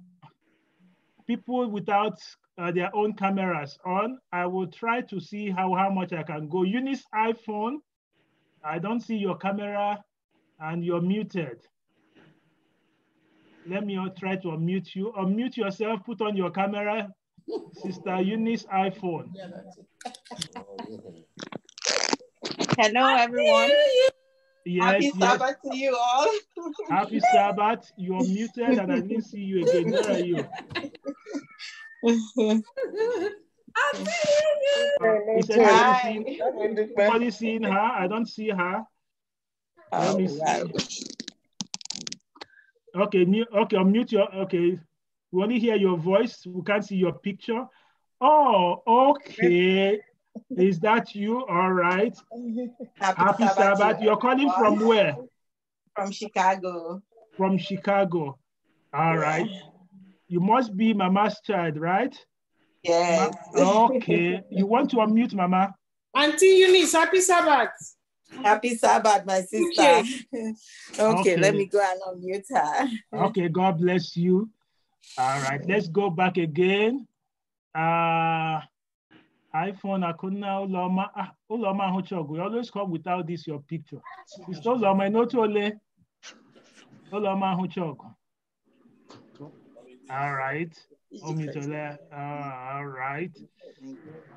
people without uh, their own cameras on. I will try to see how, how much I can go. Unis iPhone, I don't see your camera and you're muted. Let me try to unmute you. Unmute yourself, put on your camera. Sister Eunice iPhone. <laughs> Hello everyone. Yes, Happy yes. Sabbath to you all. <laughs> Happy Sabbath. You're muted and I didn't see you again. Where are you? <laughs> see you. <laughs> seeing, anybody seeing her? I don't see her. Let me see. Oh, okay, mute, okay, unmute your, okay. We only hear your voice. We can't see your picture. Oh, okay. Is that you? All right. <laughs> Happy, Happy Sabbath. Sabbath. You're calling from where? From Chicago. From Chicago. All right. You must be Mama's child, right? Yes. Ma okay. you want to unmute Mama? Auntie Eunice, happy Sabbath. Happy Sabbath, my sister. Okay, okay, <laughs> okay. let me go and unmute her. <laughs> okay, God bless you. All right, let's go back again. Uh, iPhone akuna uloma uloma ahuchogu. You always come without this your picture. It's uloma inotole uloma ahuchogu. All right. Uh, all right.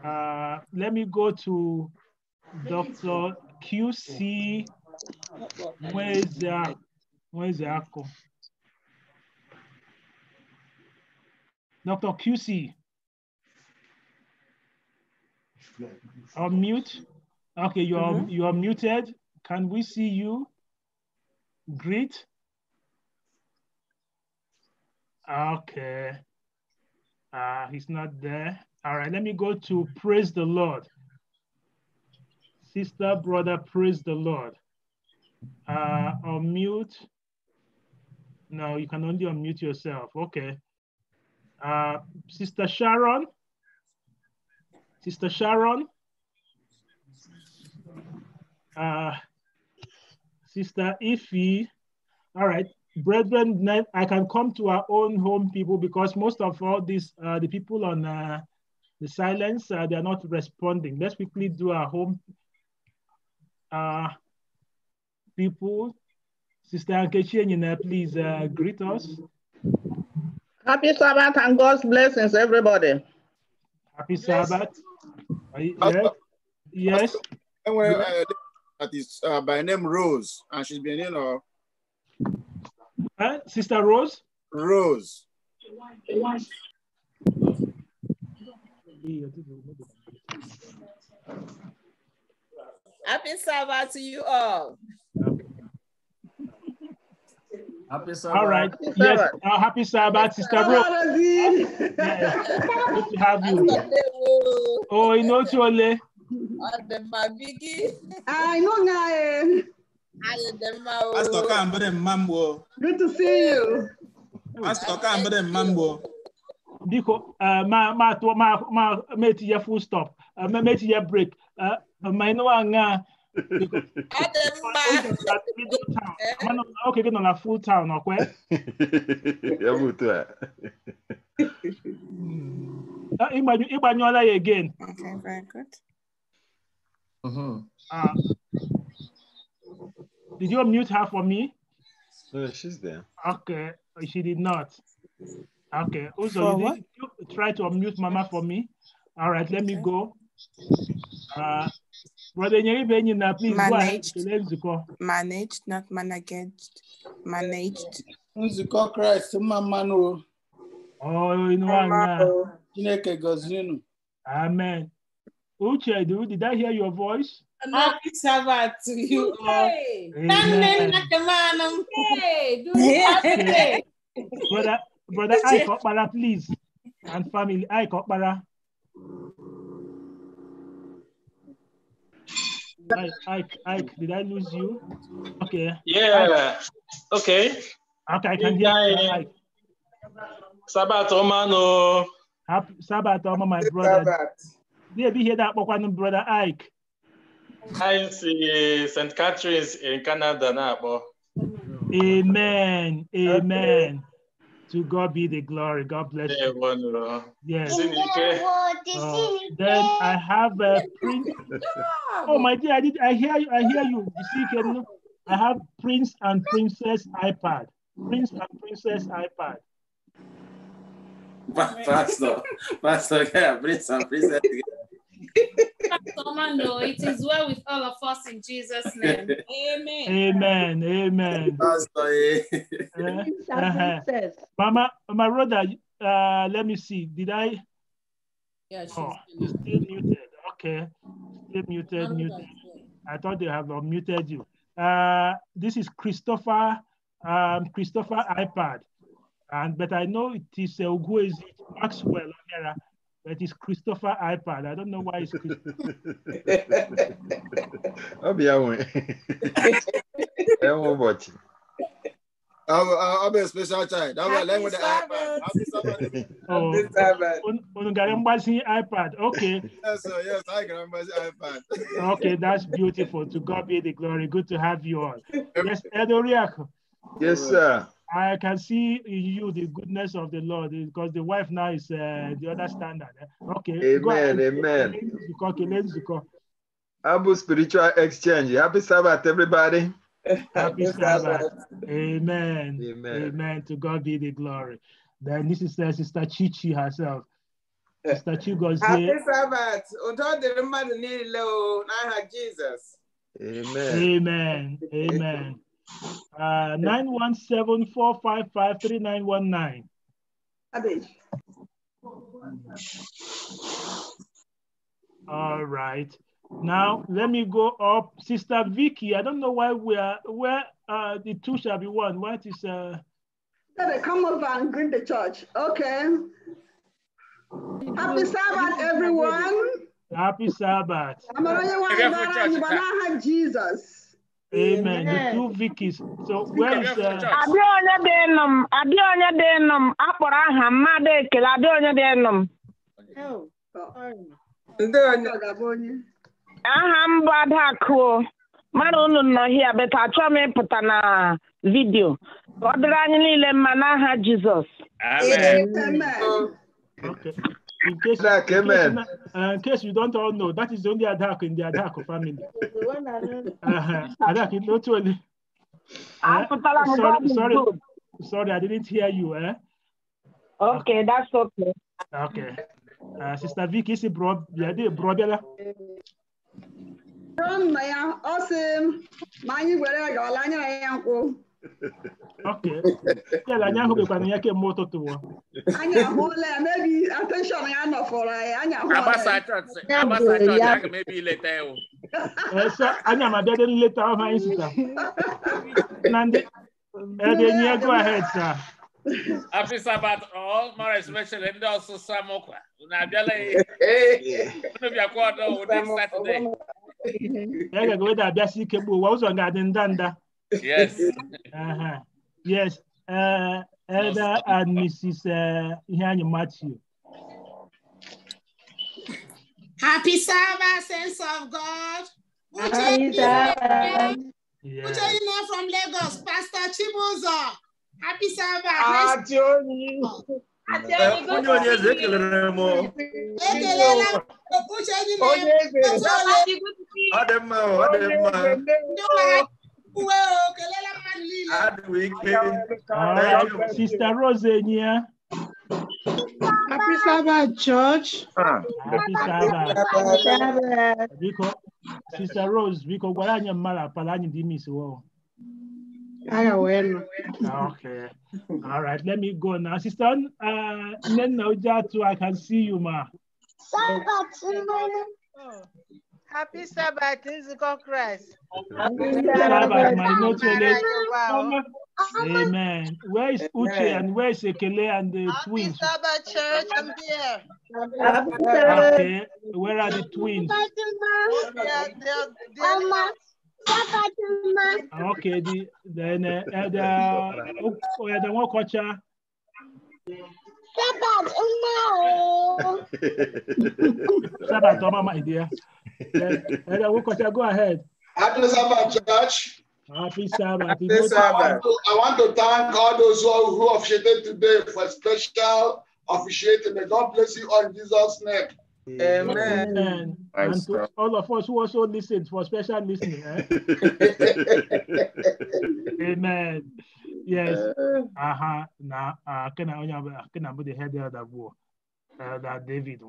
Uh, let me go to Dr. QC. Where's the where's the Dr. QC. Unmute. Okay, you are, mm -hmm. you are muted. Can we see you? Greet. Okay. Uh, he's not there. All right, let me go to praise the Lord. Sister, brother, praise the Lord. Uh, unmute. No, you can only unmute yourself. Okay. Uh, Sister Sharon. Sister Sharon, uh, Sister Ify. All right, brethren, I can come to our own home people because most of all these, uh, the people on uh, the silence, uh, they are not responding. Let's quickly do our home uh, people. Sister Ankechi please uh, greet us. Happy Sabbath and God's blessings, everybody. Happy Sabbath. Yes. You, yeah. Yes. And when yeah. uh, that is uh, by name Rose, and she's been, you know. Huh? Sister Rose? Rose. Happy Sabbath to you all. Happy Sabbath. All right. Happy yes. Sabbath. Uh, happy Sabbath, Sister Bro. Good to have you. Oh, you know Chole. I know Nae. Pastor Kambere Mambo. Good to see you. Pastor Kambere Mambo. Biko, ma ma ma ma meti ya full stop. Ma meti ya break. Ma ino anga. Oh, <laughs> okay, get on a full town, okay? <laughs> <laughs> Uh, Ibanyola again. Okay, very good. Mm-hmm. Uh, did you unmute her for me? No, she's there. Okay, she did not. Okay, also, you, you try to unmute Mama for me. All right, let me go. Uh, Brother please managed, Managed, not managed. Managed. Nzukọ Christ, mma mmanụ o. inu anya. Amen. Uche, did I hear your voice? Happy Sabbath to you all. Amen. brother, brother, I Kokpara, please. And family, I Kokpara. Ike, Ike, did I lose you? Okay. Yeah. Ike. Okay. Okay, I can hear you. Ike. Sabat Omano. Happy Sabat Oma, my brother. Sabat. Yeah, be here that one brother Ike. I see St. Catherine's in Canada now. Amen. Amen. Okay. To God be the glory. God bless you. Yes. Uh, then I have a Prince. Oh my dear, I did. I hear you. I hear you. you I have Prince and Princess iPad. Prince and Princess iPad. Pastor, Pastor, yeah, Prince and Princess. <laughs> it is well with all of us in Jesus' name. <laughs> Amen. Amen. Amen. Eh? uh-huh. uh-huh. Mama, my brother, uh, let me see. Did I? Yeah, oh, still muted. Okay. Still muted, muted. I thought they have unmuted you. Uh, this is Christopher, um, Christopher iPad. And, but I know it is uh, Uguezi Maxwell O'Hara. That is Christopher iPad. I don't know why it's Christopher. <laughs> I'll be away. I'm watching. I'm, I'm a special child. I'm a language iPad. I'm will be this iPad. iPad. Okay. Yes, sir. Yes, I can remember iPad. <laughs> okay, that's beautiful. To God be the glory. Good to have you all. Yes, Edoriak. Yes, sir. I can see you the goodness of the Lord because the wife now is uh, the other standard. Eh? Okay. Amen. Amen. Abu spiritual exchange. Happy Sabbath, everybody. Happy Sabbath. Amen. Amen. Amen. To God be the glory. Then this is uh, Sister Chichi herself. <laughs> Sister Chigozie. Happy Sabbath. Udo the mmadụ niile o Jesus. Amen. Amen. Amen. Uh, 917-455-3919. All right. Now let me go up. Sister Vicky, I don't know why we are where uh, the two shall be one. What is uh come over and greet the church. Okay. Happy Sabbath, everyone. Happy Sabbath. Jesus. Amen. The two Vickies. So where is uh, Abịa onye dị nụ m, onye dị nụ m, akpọrọ aha mmadụ ekele abịa onye dị oh, onye m. Aha m bụ Adakụ. mara unu nọ hia beta achọ m ịpụta na vidio Ọ dịrị anyị niile mma n'aha Jizọs. Amen. Okay. In case, in amen. Case, uh, in case you don't all know, that is the only adak in the adak family. <laughs> uh-huh. Adak, not only. Ah, uh, sorry, sorry, sorry, I didn't hear you. Eh? Okay, that's okay. Okay. Uh, Sister Vicky, is it bro? Yeah, From my uh, awesome. Mine, where I go, Lanya, I am. Okay. Yeah, anyị ahụbekwana ya kemgbe ụtụtụ wa. Anyị ahụla ya, maybe attention ya nọfọrọ anyị, anyị Anya, ya. Agbasa chọọchị, agbasa chọọchị, aga m ebe ileta ya o. Esa, anyị ama bịa dị nleta ọhụ anyị sita. Na ndị, ebe nye go ahead sa. Happy Sabbath all, more especially ndị ọsụsa mụkwa. Unu abịala ya. Unu bịakwa ọdọ ụdị Satọde. Ya ga-aga weda abịasị ike gbuo ụwa, ụzọ ga-adị ndanda. Yes. uh-huh. Yes. Uh, Elder and Mrs. Uh, Ihanya Matthew. Happy Sabbath, saints of God. Happy Sabbath. Yeah. Uche from Lagos, Pastor Chibuzo. Happy Sabbath. Ah, oh, happy Sabbath. Happy weekend. Right. Sister Rosenia. Happy Sabbath, church. Happy Sabbath. Sister Rose, biko gwara anyị mara pala anyị dị miss wo. Aga wenu. Ah, okay. All right, let me go now. Sister uh, Nenna Ujatu, I can see you, ma. Happy Sabbath, Nzukọ Christ. Happy Sabbath, my notele. Amen. Where is Uche and where is Ekele and the Happy twins? Happy Sabbath, church. I'm here. Happy Sabbath. Okay. Where are the twins? They are, they are, they are Okay, the, then uh, and, uh, oh, yeah, oh, the one culture. Sabbath, oh no. Sabbath, oh my dear. <laughs> yeah, yeah, Go ahead. Happy Sabbath, church. Happy Sabbath. Happy Sabbath. I want to thank all those who, who officiated today for special officiating. May God bless you all in Jesus' name. Amen. Amen. And to all of us who also listened for special listening. Eh? <laughs> Amen. Yes. Uh-huh. Now, uh, can I only can I put the head there that war? Uh, da David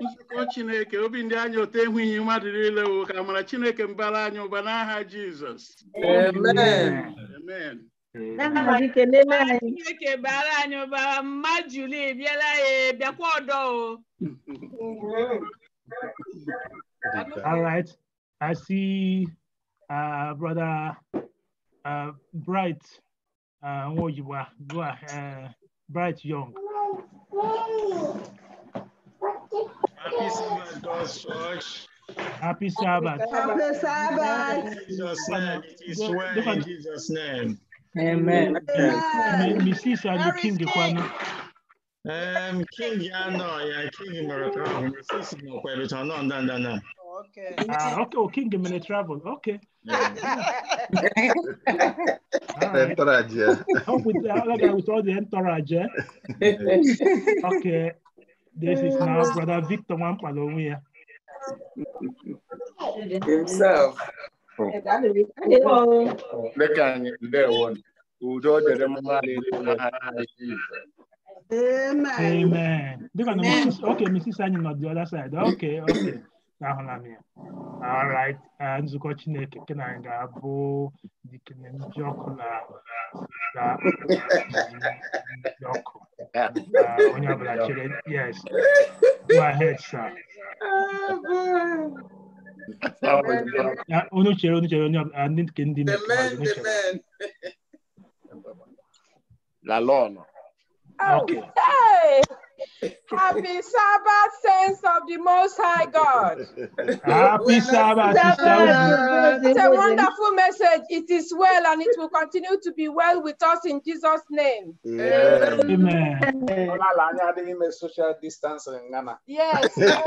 nzukọ Chineke obi ndị anyị ote ehwughị mmadụ niile wo ka mara Chineke mbara anyị ụba n'aha Jizọs Chineke bara anyị ụba mma Juli bịara ya bịakwa ọdọ o All right. I see uh, brother uh, Bright uh, you You are? are uh, Bright Young. Happy Sabbath, church. Happy Sabbath. Happy Sabbath. In Jesus' name, it is well in Jesus' name. Amen. Mrs. and the King Kwano. Um, King Yano, yeah, King Maracan. Mrs. Mokwebit, no, no, no, no. Okay. Uh, okay, oh, King Minute Travel, okay entourage, Help with, like, with all the entourage, eh? <laughs> Okay. This is now Brother Victor Wampalong here. Himself. Look at there one. Udo dere mmali Amen. Amen. Amen. Okay, Mrs. Annie on the other side. Okay, okay ahụla ya alright uh, nzukọ chineke nke na ga-abụ dikene ndị ọkụ na ọkụ uh, onye ọbụla chere yes go ahead sir onye uh, chere onye chere ndị nke ndị okay. Happy Sabbath, saints of the Most High God. Happy Sabbath. It's a wonderful message. It is well and it will continue to be well with us in Jesus' name. Yeah. Amen. social distance in Ghana. Yes. <laughs> yes.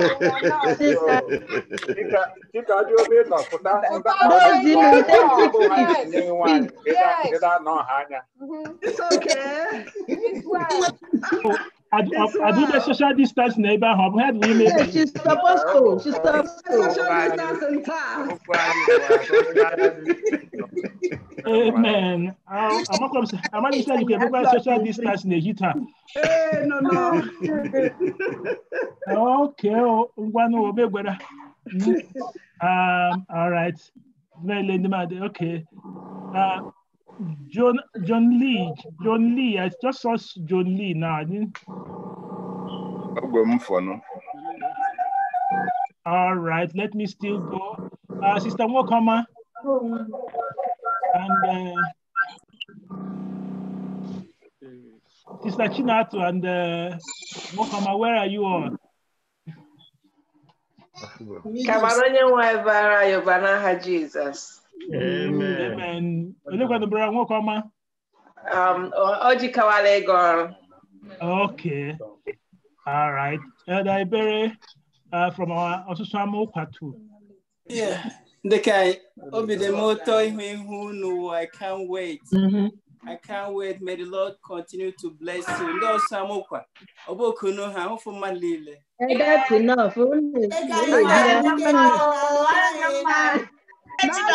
It's okay. It's well. I, do, I, I do the social distance neighbor hub. We had women. Yeah, she's supposed to. She's supposed to. Social distancing class. Oh, Amen. Uh, I'm not going to say I'm going to say you can social distance in the neighbor. Hey, no, no. <laughs> okay. more. Oh, oh, <laughs> um, all right. Very lady, okay. Uh, John John Lee. John Lee. I just saw John Lee now. I didn't. All right, let me still go. Uh, Sister Mokama. And uh, Sister Chinatu and uh, Mokama, where are you all? Jesus onye kwadobere nwoke ọma um, ojikawala ego ọrụ okay all right elder ibere uh, from our ọsụsụ ama ụkwa too yeah dịka obi dị m ụtọ ihu ihu n'ụwa i can't wait mm -hmm. I can't wait. May the Lord continue to bless you. Ndị ọsọ amụkwa, ọ bụ okunu ha, ụfụ mmadụ That's enough. Mama.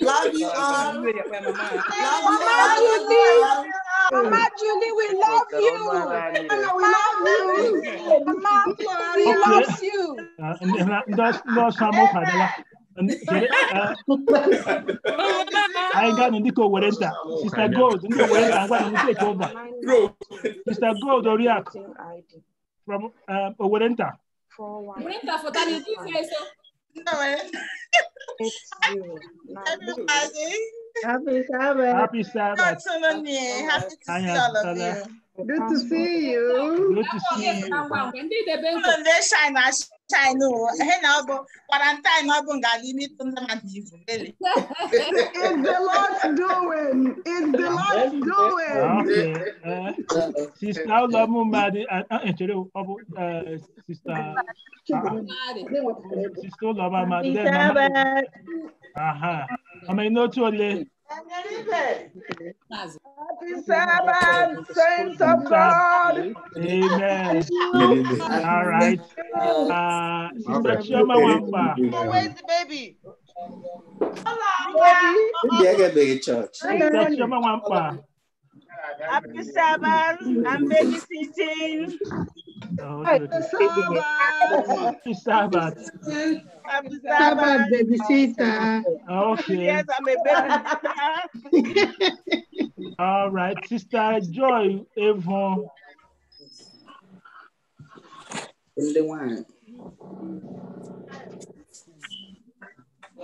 Love Mama Julie, we love you. We love you. Mama, we love you. Uh, uh, I got ga-anọ dịka owereta Sister Gold ndị owereta ngwa na take over Sister Gold Oriakụ from um, owerenta owerenta fọta na ezi ife eso Happy Sabbath. Happy Sabbath. Eh? Happy to see all of you. Good to see you. Good to see you. Good to see you. Good to see you. China, oh. Hena, quarantine, limit on <laughs> the It's the Lord's doing. It's the Lord's doing. Sister Lamumadi, oh, oh, uh, Sister. Sister Lamumadi. Aha. Am I not too late? Happy Sabbath, saints of God. Amen. All right. Uh, Sister Chioma Wamba. Where's the baby? Hello, baby. Where's the Church. Sister Chioma Wamba. Happy Sabbath. I'm babysitting. Oh, Happy Sabbath. Happy Sabbath. Happy Sabbath, babysitter. Okay. Yes, I'm a babysitter. All right, Sister Joy Avon. Only one.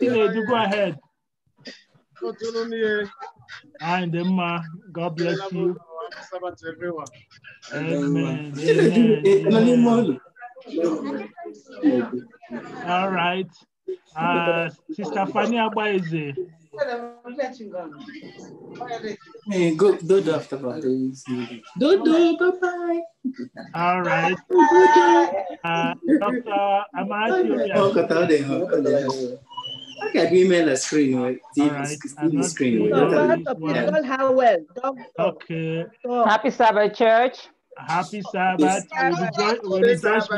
Chinedu, go ahead. And Emma, God bless you. Amen. Amen. All right. Uh, Sister Fanny Abaeze good good, good after Dodo, bye bye. All right. Uh, Dr. Amadi. Oh, Kataode. How can we mail a screen? Right? TV, right. TV screen. Right? Well, well. Okay. Happy Sabbath, church. Happy Sabbath. Happy Sabbath. Happy Sabbath,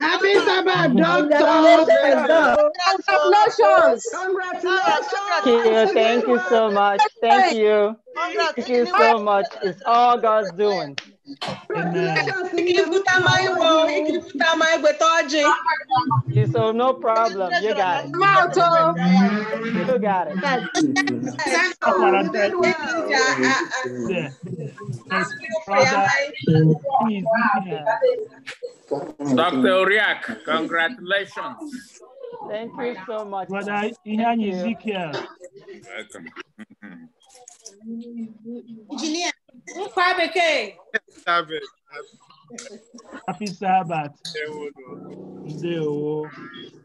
Happy Sabbath doctor. Congratulations. Congratulations. Thank you so much. Thank you. Thank you so much. It's all God's doing. Amen. You so no problem. You got it. You got it. Dr. Uriak, congratulations. Thank you so much. Brother Ihan Ezekiel. Welcome. <laughs> Engineer. Nkwa bekee. Sabbath. Happy Sabbath. Zero.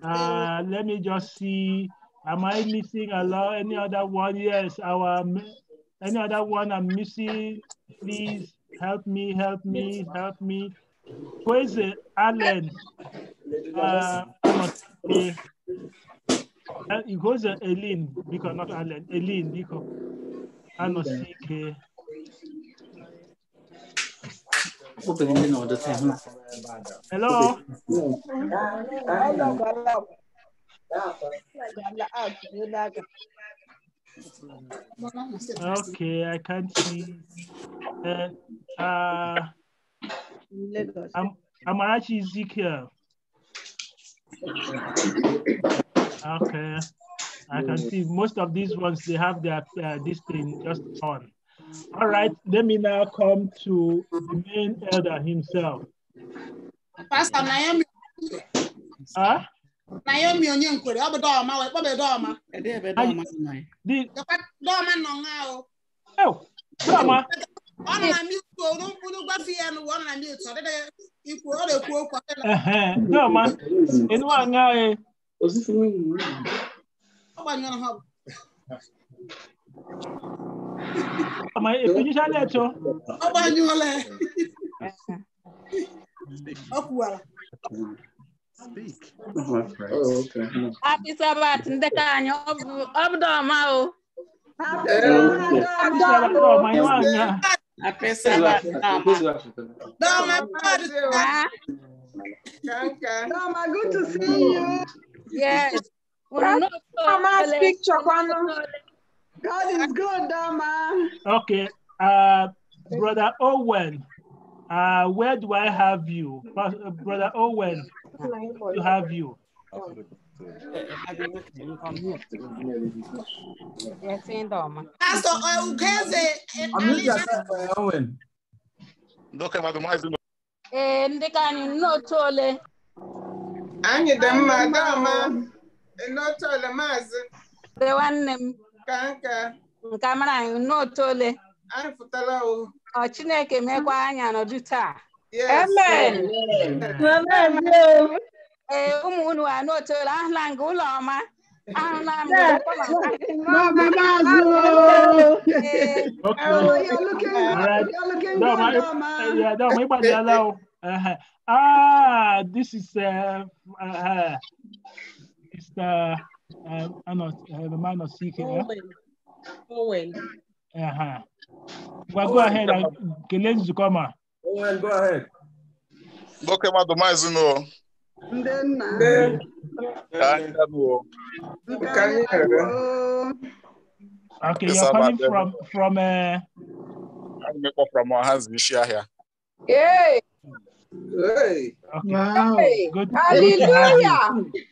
Uh, let me just see. Am I missing a lot? Any other one? Yes, our any other one I'm missing. Please help me, help me, help me. Kweze Allen. Uh, Kweze uh, Elin, because not Allen. Elin, because. I'm a CK. Open Hello. Okay, I can't see. Uh, uh, I'm actually Ezekiel. Okay. I can see most of these ones, they have their, uh, this thing just on. All right, let me now come to the main elder himself. Pastor Naomi. Huh? Naomi Onyenkwere, ọ bụ dọọma, ọ bụ dọọma. Ede ebe dọọma si nọ nga Oh, dọọma. Ọ nọ na mute o, n'ụkwụrụ nọ na Nobody gonna have. Ama ekunyi sani ẹtọ. Ọba ni wọn lẹ. Happy Speak. Oh, okay. Happy Sabbath, Ndekanyo. Obdoma o. Happy Sabbath. Doma, Doma, ah. good to see you. Yes. God is good, man. Okay. Uh, Brother Owen, uh, where do I have you? Brother Owen, to have you. Pastor Owen. Doka madumazi. Eh, nne ole maazị nwanne m ka nka Nka mara anyị nne ole anyị pụtara o ọ chineke mekwa anya nọdụ taa amen ee ụmụ unu anụ ole ahụla nke ụlọ ọma ahụla m ịgbadiala o ah this is uh, uh, uh Mr. Uh, uh ano, uh, the man of CK. Owen. Owen. Uh-huh. Well, Owen. go ahead. Kelezi uh, Zukoma. Owen, go ahead. Nwoke mmadụ maazị n'ụọ. Ndị nna. Ka Okay, you're coming from from uh. I'm from Ohazi here. Yay! Hey. Okay. Wow. Good, Hallelujah.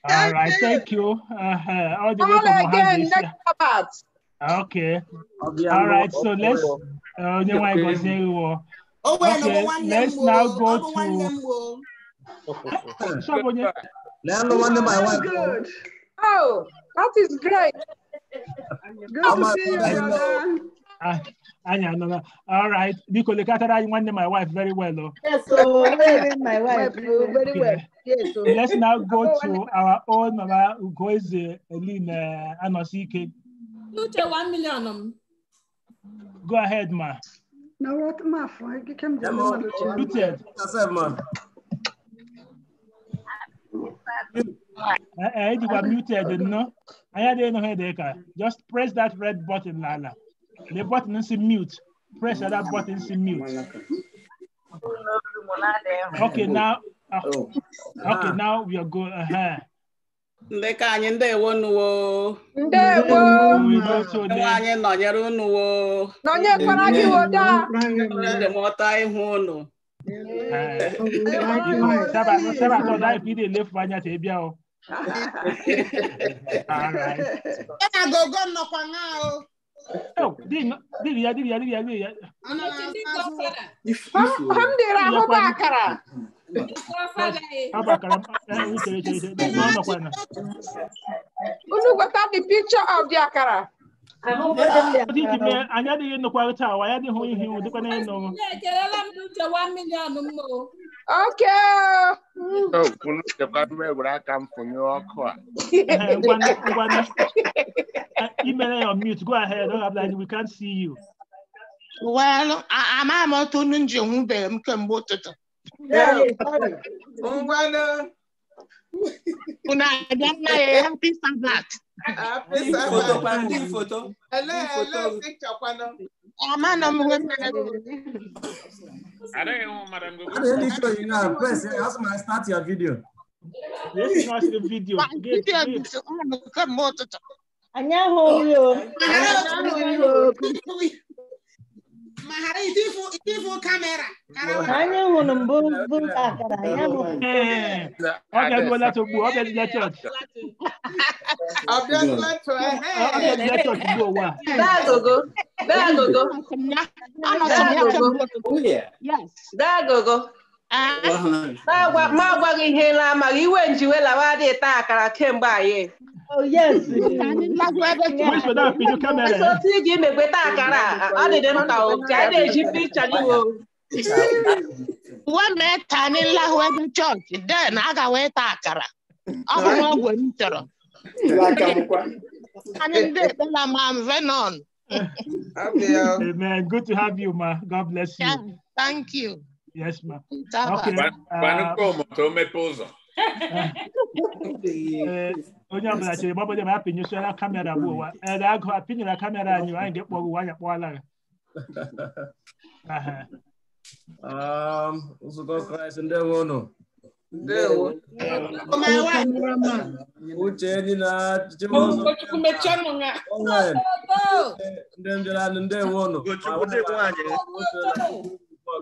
All right. Thank you. Uh All the way again, next Okay. All right. So let's. Uh, okay. Oh, okay. Let's now go to. Number one. Oh, that is great. Good to see you, Anya, no, no. All right. Biko, the at that. You want my wife very well, though. Yes, so <laughs> <laughs> my wife very well. Yes, so. Let's <laughs> now go to our own Mama Ugoize Elina uh, Anosike. You take one million. Um. Go ahead, ma. No, what, ma? Eh, eh, you can not do it. Yes, ma. I uh, you were muted, no? I had no headache. Ah. Just press that red button, Lala. The button is mute. Press that button is mute. Okay, now. Okay, okay now we are going. Uh anyị ndewo nuwo ndewo anyị nọnyere unuwo nọnyekwara gị woda ndemọta ihu unu sabatọ daịpụ ide anya ta ebia o gogo nnọkwa ṅa o dibia dibia dibia dibia hamdira ahụ bụ akara unu gweta the picture of the akara i adịghị nnukwarịta awa anyị adịghị ihe iwu dịkwa n'elu Okay. Oh, kunu kebabwe wura kam funyo okwa. Email on mute. Go ahead. Don't have We can't see you. Well, I'm I'm out on nje humbe mkembo toto. Ungwana. Kuna jana ya happy Sabbath. Happy Sabbath. Photo, photo. Hello, hello, picture kwano. Amana mwe mwe. I don't even want Madam Gogo. I'm really sure you know First, that's my start your video. Let's watch the video. Video. Anyaho. Anyaho. ma ghara itifu itifu kamera anyị nwụrụ mbụ bụ akara ya bụ ọ bịaruola togbu ọ bịadịla chọọchị ọ bịadịla chọọchị bụ ụwa dagogo dagogo dagogo Ah. Oh yes. Amen. Good to have you, Ma. God bless you. thank you. Yes, ma'am. Okay. Paano como? me poso. onye ọbụla chere gba bodo ma ya kamera bụ ụwa ere agụ apinyere kamera anyị anyị ga-ekpọrọ ụwa anyị kpọọla ya nzukọ kraịst ndewo unu ndewo uche ndị na-achịchị ndị mbịara ndewo unu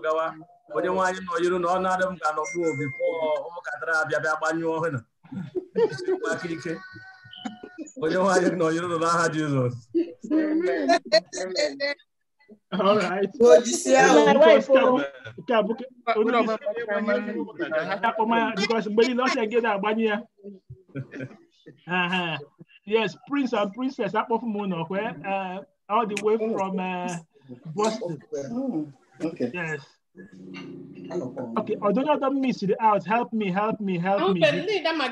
gawa onye nwaanyị nọ yiri na ọ na-adị m ka nọbụ obi pụọ ụmụkatara abịa bịa gbanyụọ ọhụụ na akirike onye nwaanyị nọ yiri nọ n'aha Jizọs mgbe niile o gị na-agbanye ya yes prince and princess akpọfu m Mona, where all the way oh. from uh, Boston oh, yes Okay, ọdún ọdún mi sì dey out help me help me help me. Ahunbemi ní ìdámà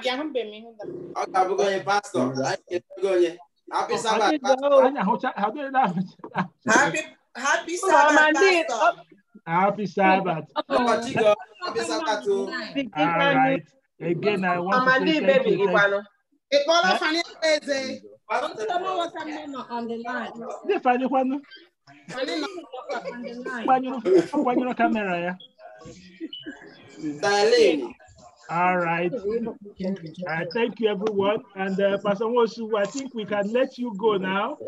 gí Happy Sabbath. Oh, oh, happy oh, Sabbath pastor. Happy Sabbath. Happy Sabbath All right. Again, I want to say thank you. Ìpọ́nlọ́ Fani Ẹgbẹ́ Eze. Ọ̀dọ́ tó mọ̀ wọ́n sá mẹ́nà on the line. Ṣé Fani Kwanyo no camera ya. All right. Uh, thank you, everyone. And uh, Pastor Wosu, I think we can let you go now.